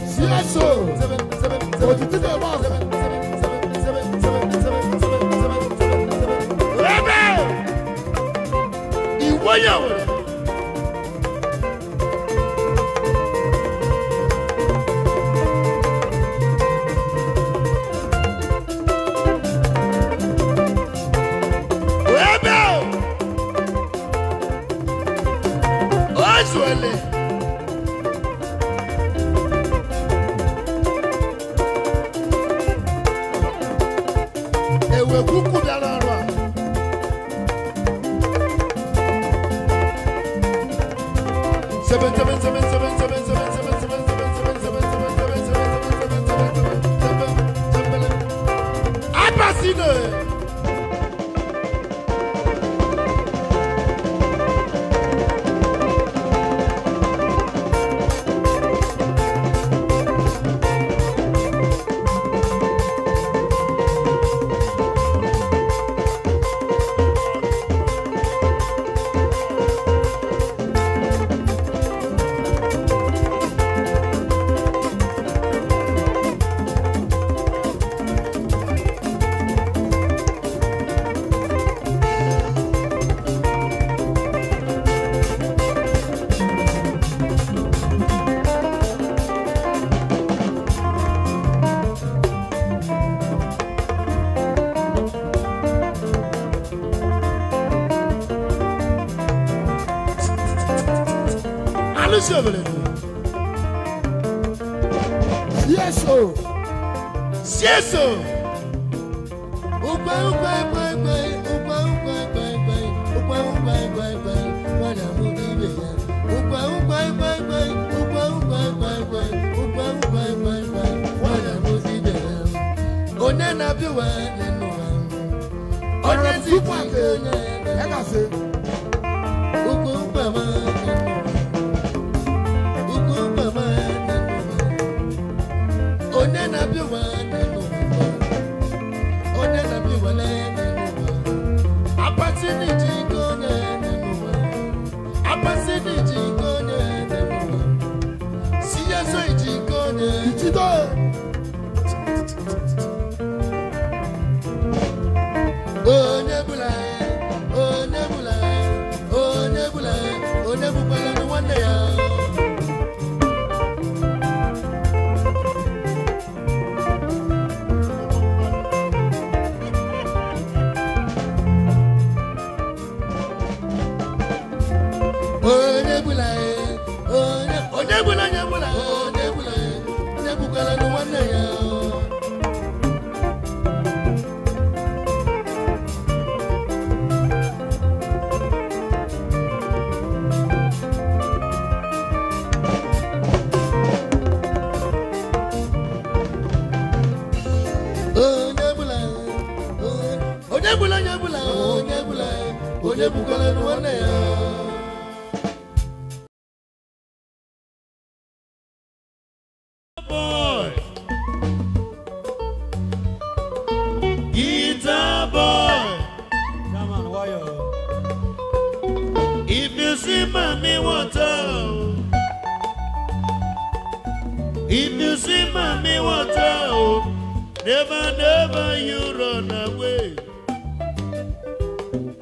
yes,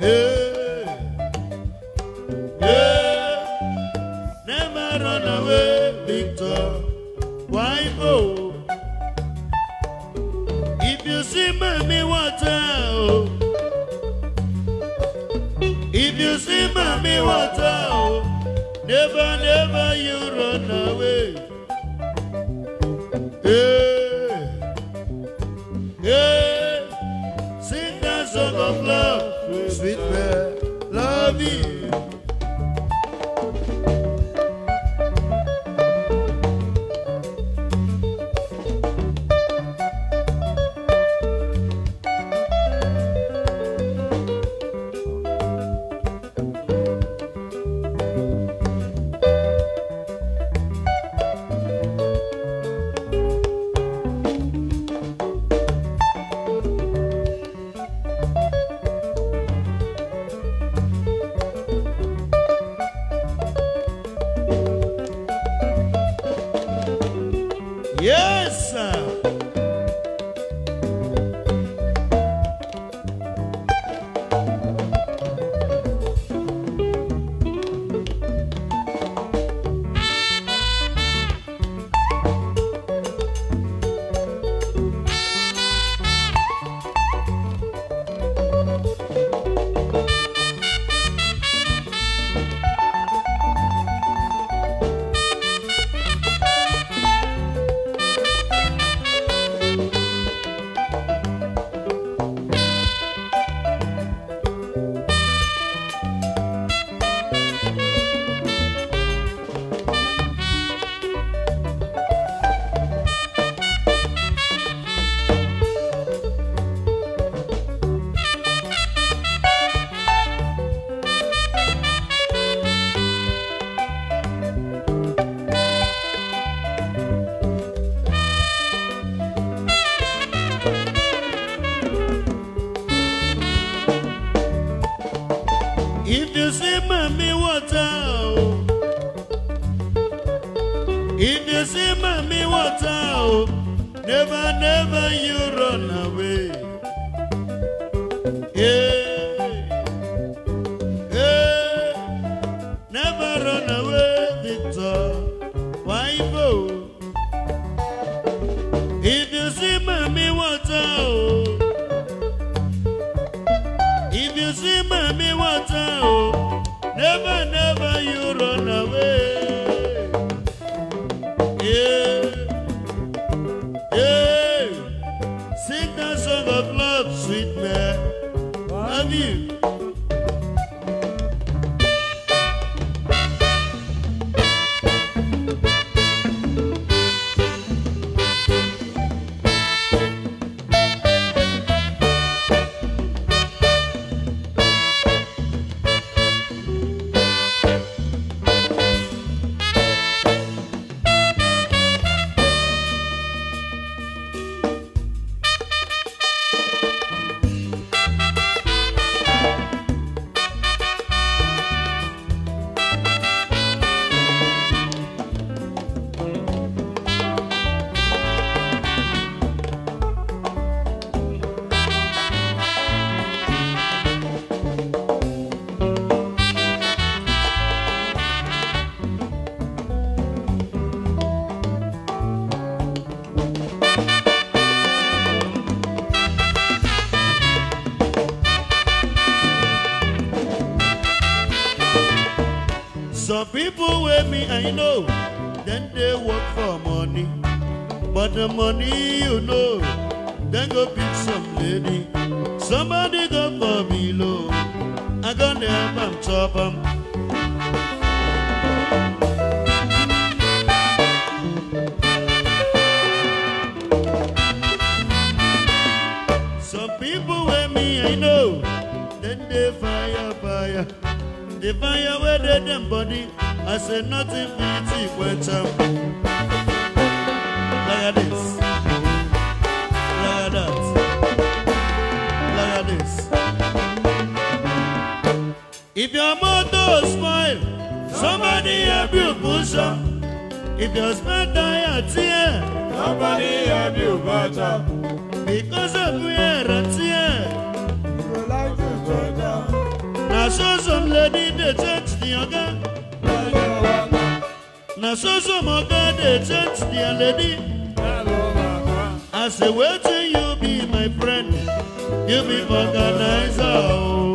Yeah. you know, then they work for money. But the money, you know, then go pick some lady. Somebody go for me low. I gonna help them top them. they fire where they them body I said nothing pretty went up. Look this. Look that. Look this. If your motto smile, somebody help you push up. If your smile die a tear, somebody help you butt up. Because of me, a tear. Now show some lady the church the yoga. I so some moga dey change lady i say wetin you be my friend you be organizer o. Oh.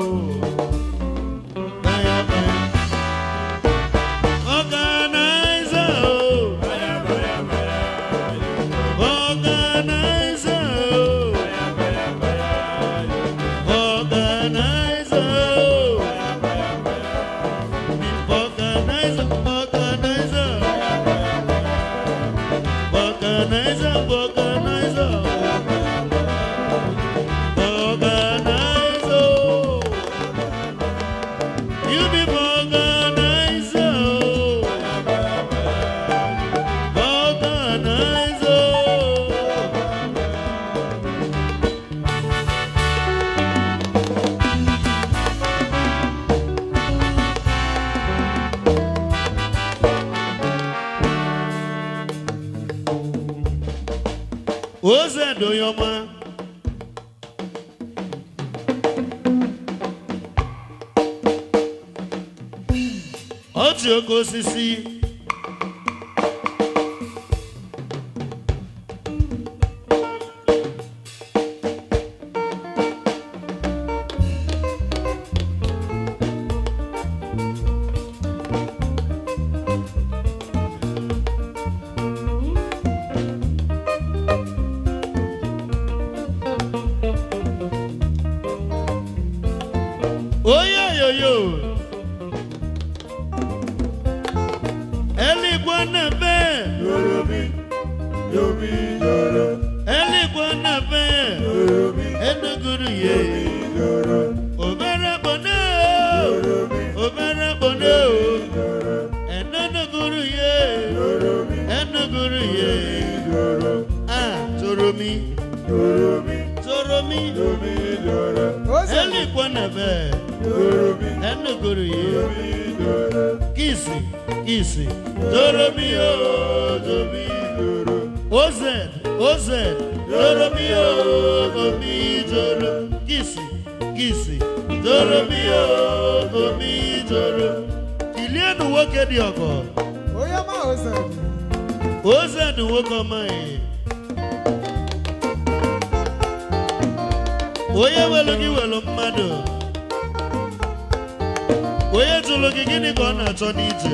welu gị welu mmadụ onye jụrụ gị gịnị ka ọ na-achọ n'ije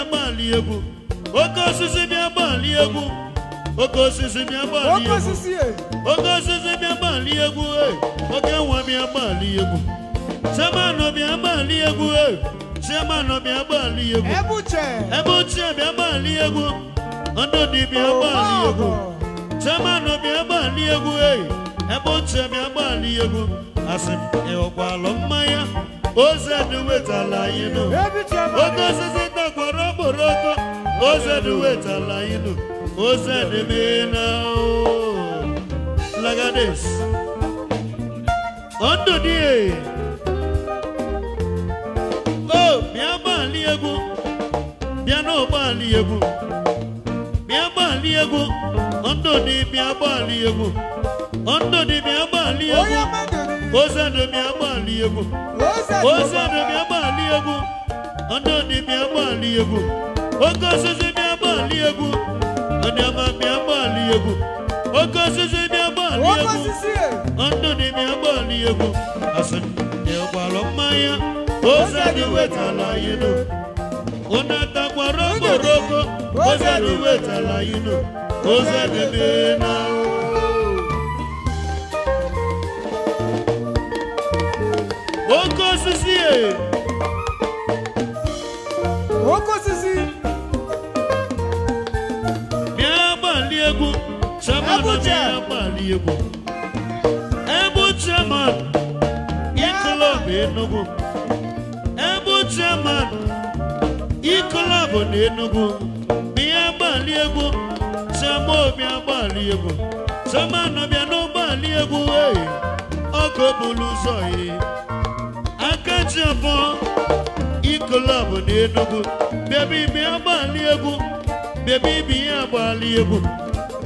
agbali egwu oke osisi bịa agbali egwu oke osisi bịa agbali egwu oke eh. osisi bịa agbali egwu eh. oke nwa bịa agbali egwu chairman bịa agbali egwu chairman eh. bịa agbali egwu ebe ochie bịa agbali egwu ndụdị bịa oh, agbali egwu chairman bịa agbali egwu ebe ochie bịa agbali egwu asị m ịghọkwalụ mmanya ozi edị wetala anyị nụ oke osisi makwara okporoko ozedị wetala ilu ozedị mena lagades ndụ dị o bịa gbalị egwu bịa n'ụgbọala egwu bịa gbalị egwu ndụ dị bịa gbalị egwu ndụ dị bịa gbalị egwu ozedị bịa gbalị egwu ozedị bịa gbalị egwu ọdọdị bịa gbalị egwu oke osisi bịa gbalị egwu ọdịama bịa gbalị egwu oke osisi bịa gbalị egwu ọdọdị bịa gbalị egwu asịndị gbalụ mmanya ose dị wetala yino yinu ụna takwara ose dị wetala yinu ozadị dị n'ahụ oke osisi ee Oko sisi. Mi agbali egwu, chairman na mi agbali egwu. Ebu chairman, ikolab Enugu. Ebu chairman, ikolab na Enugu. Mi agbali egwu, chairman mi agbali egwu. Chairman na mi agbali egwu, ọkọ bulu sọ yìí. Akẹ́jì ọ̀fọ́ club n'Enugu baby bi agbali egwu baby bi agbali egwu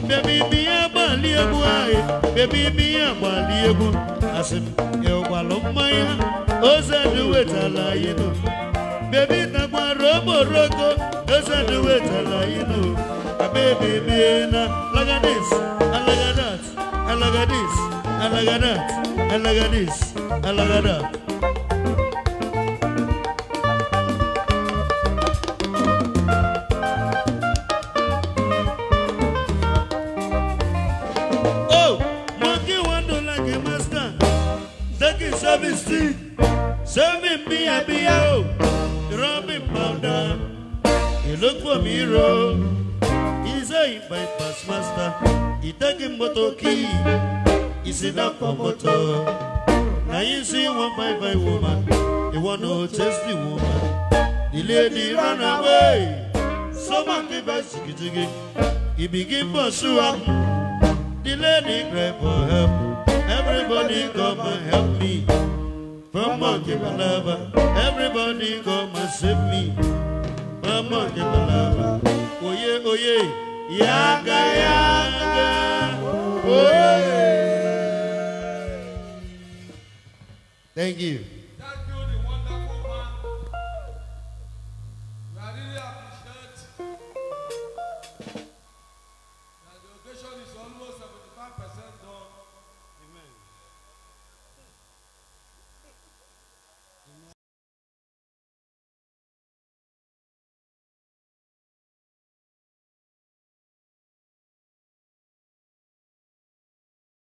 baby bi agbali egwu ayi baby bi agbali egwu asị m ịgbalụ mmanya ozedị wetala anyị nụ baby takwara okporoko ozedị wetala anyị nụ baby bi na lagadis alagadat alagadis alagadat alagadis that. sí. Sẹ́mi mi àbíyá o, ìran mi pàdà, ìlókù mi ro. Iṣẹ́ ìbypass master, ìtẹ́gì mọ́tò kí, ìsìndàpọ̀ mọ́tò. Nàyí sí one five five woman, ìwọ nù tasty woman. The lady run away, So sọ́mà kí bá jìgìjìgì, ìbìgì bọ̀ ṣúwa. The lady cry for help, everybody come and help me. Mama give a lover, everybody come and save me. Mama give a lover, oh yeah, yaga yaga, oh yeah. Thank you.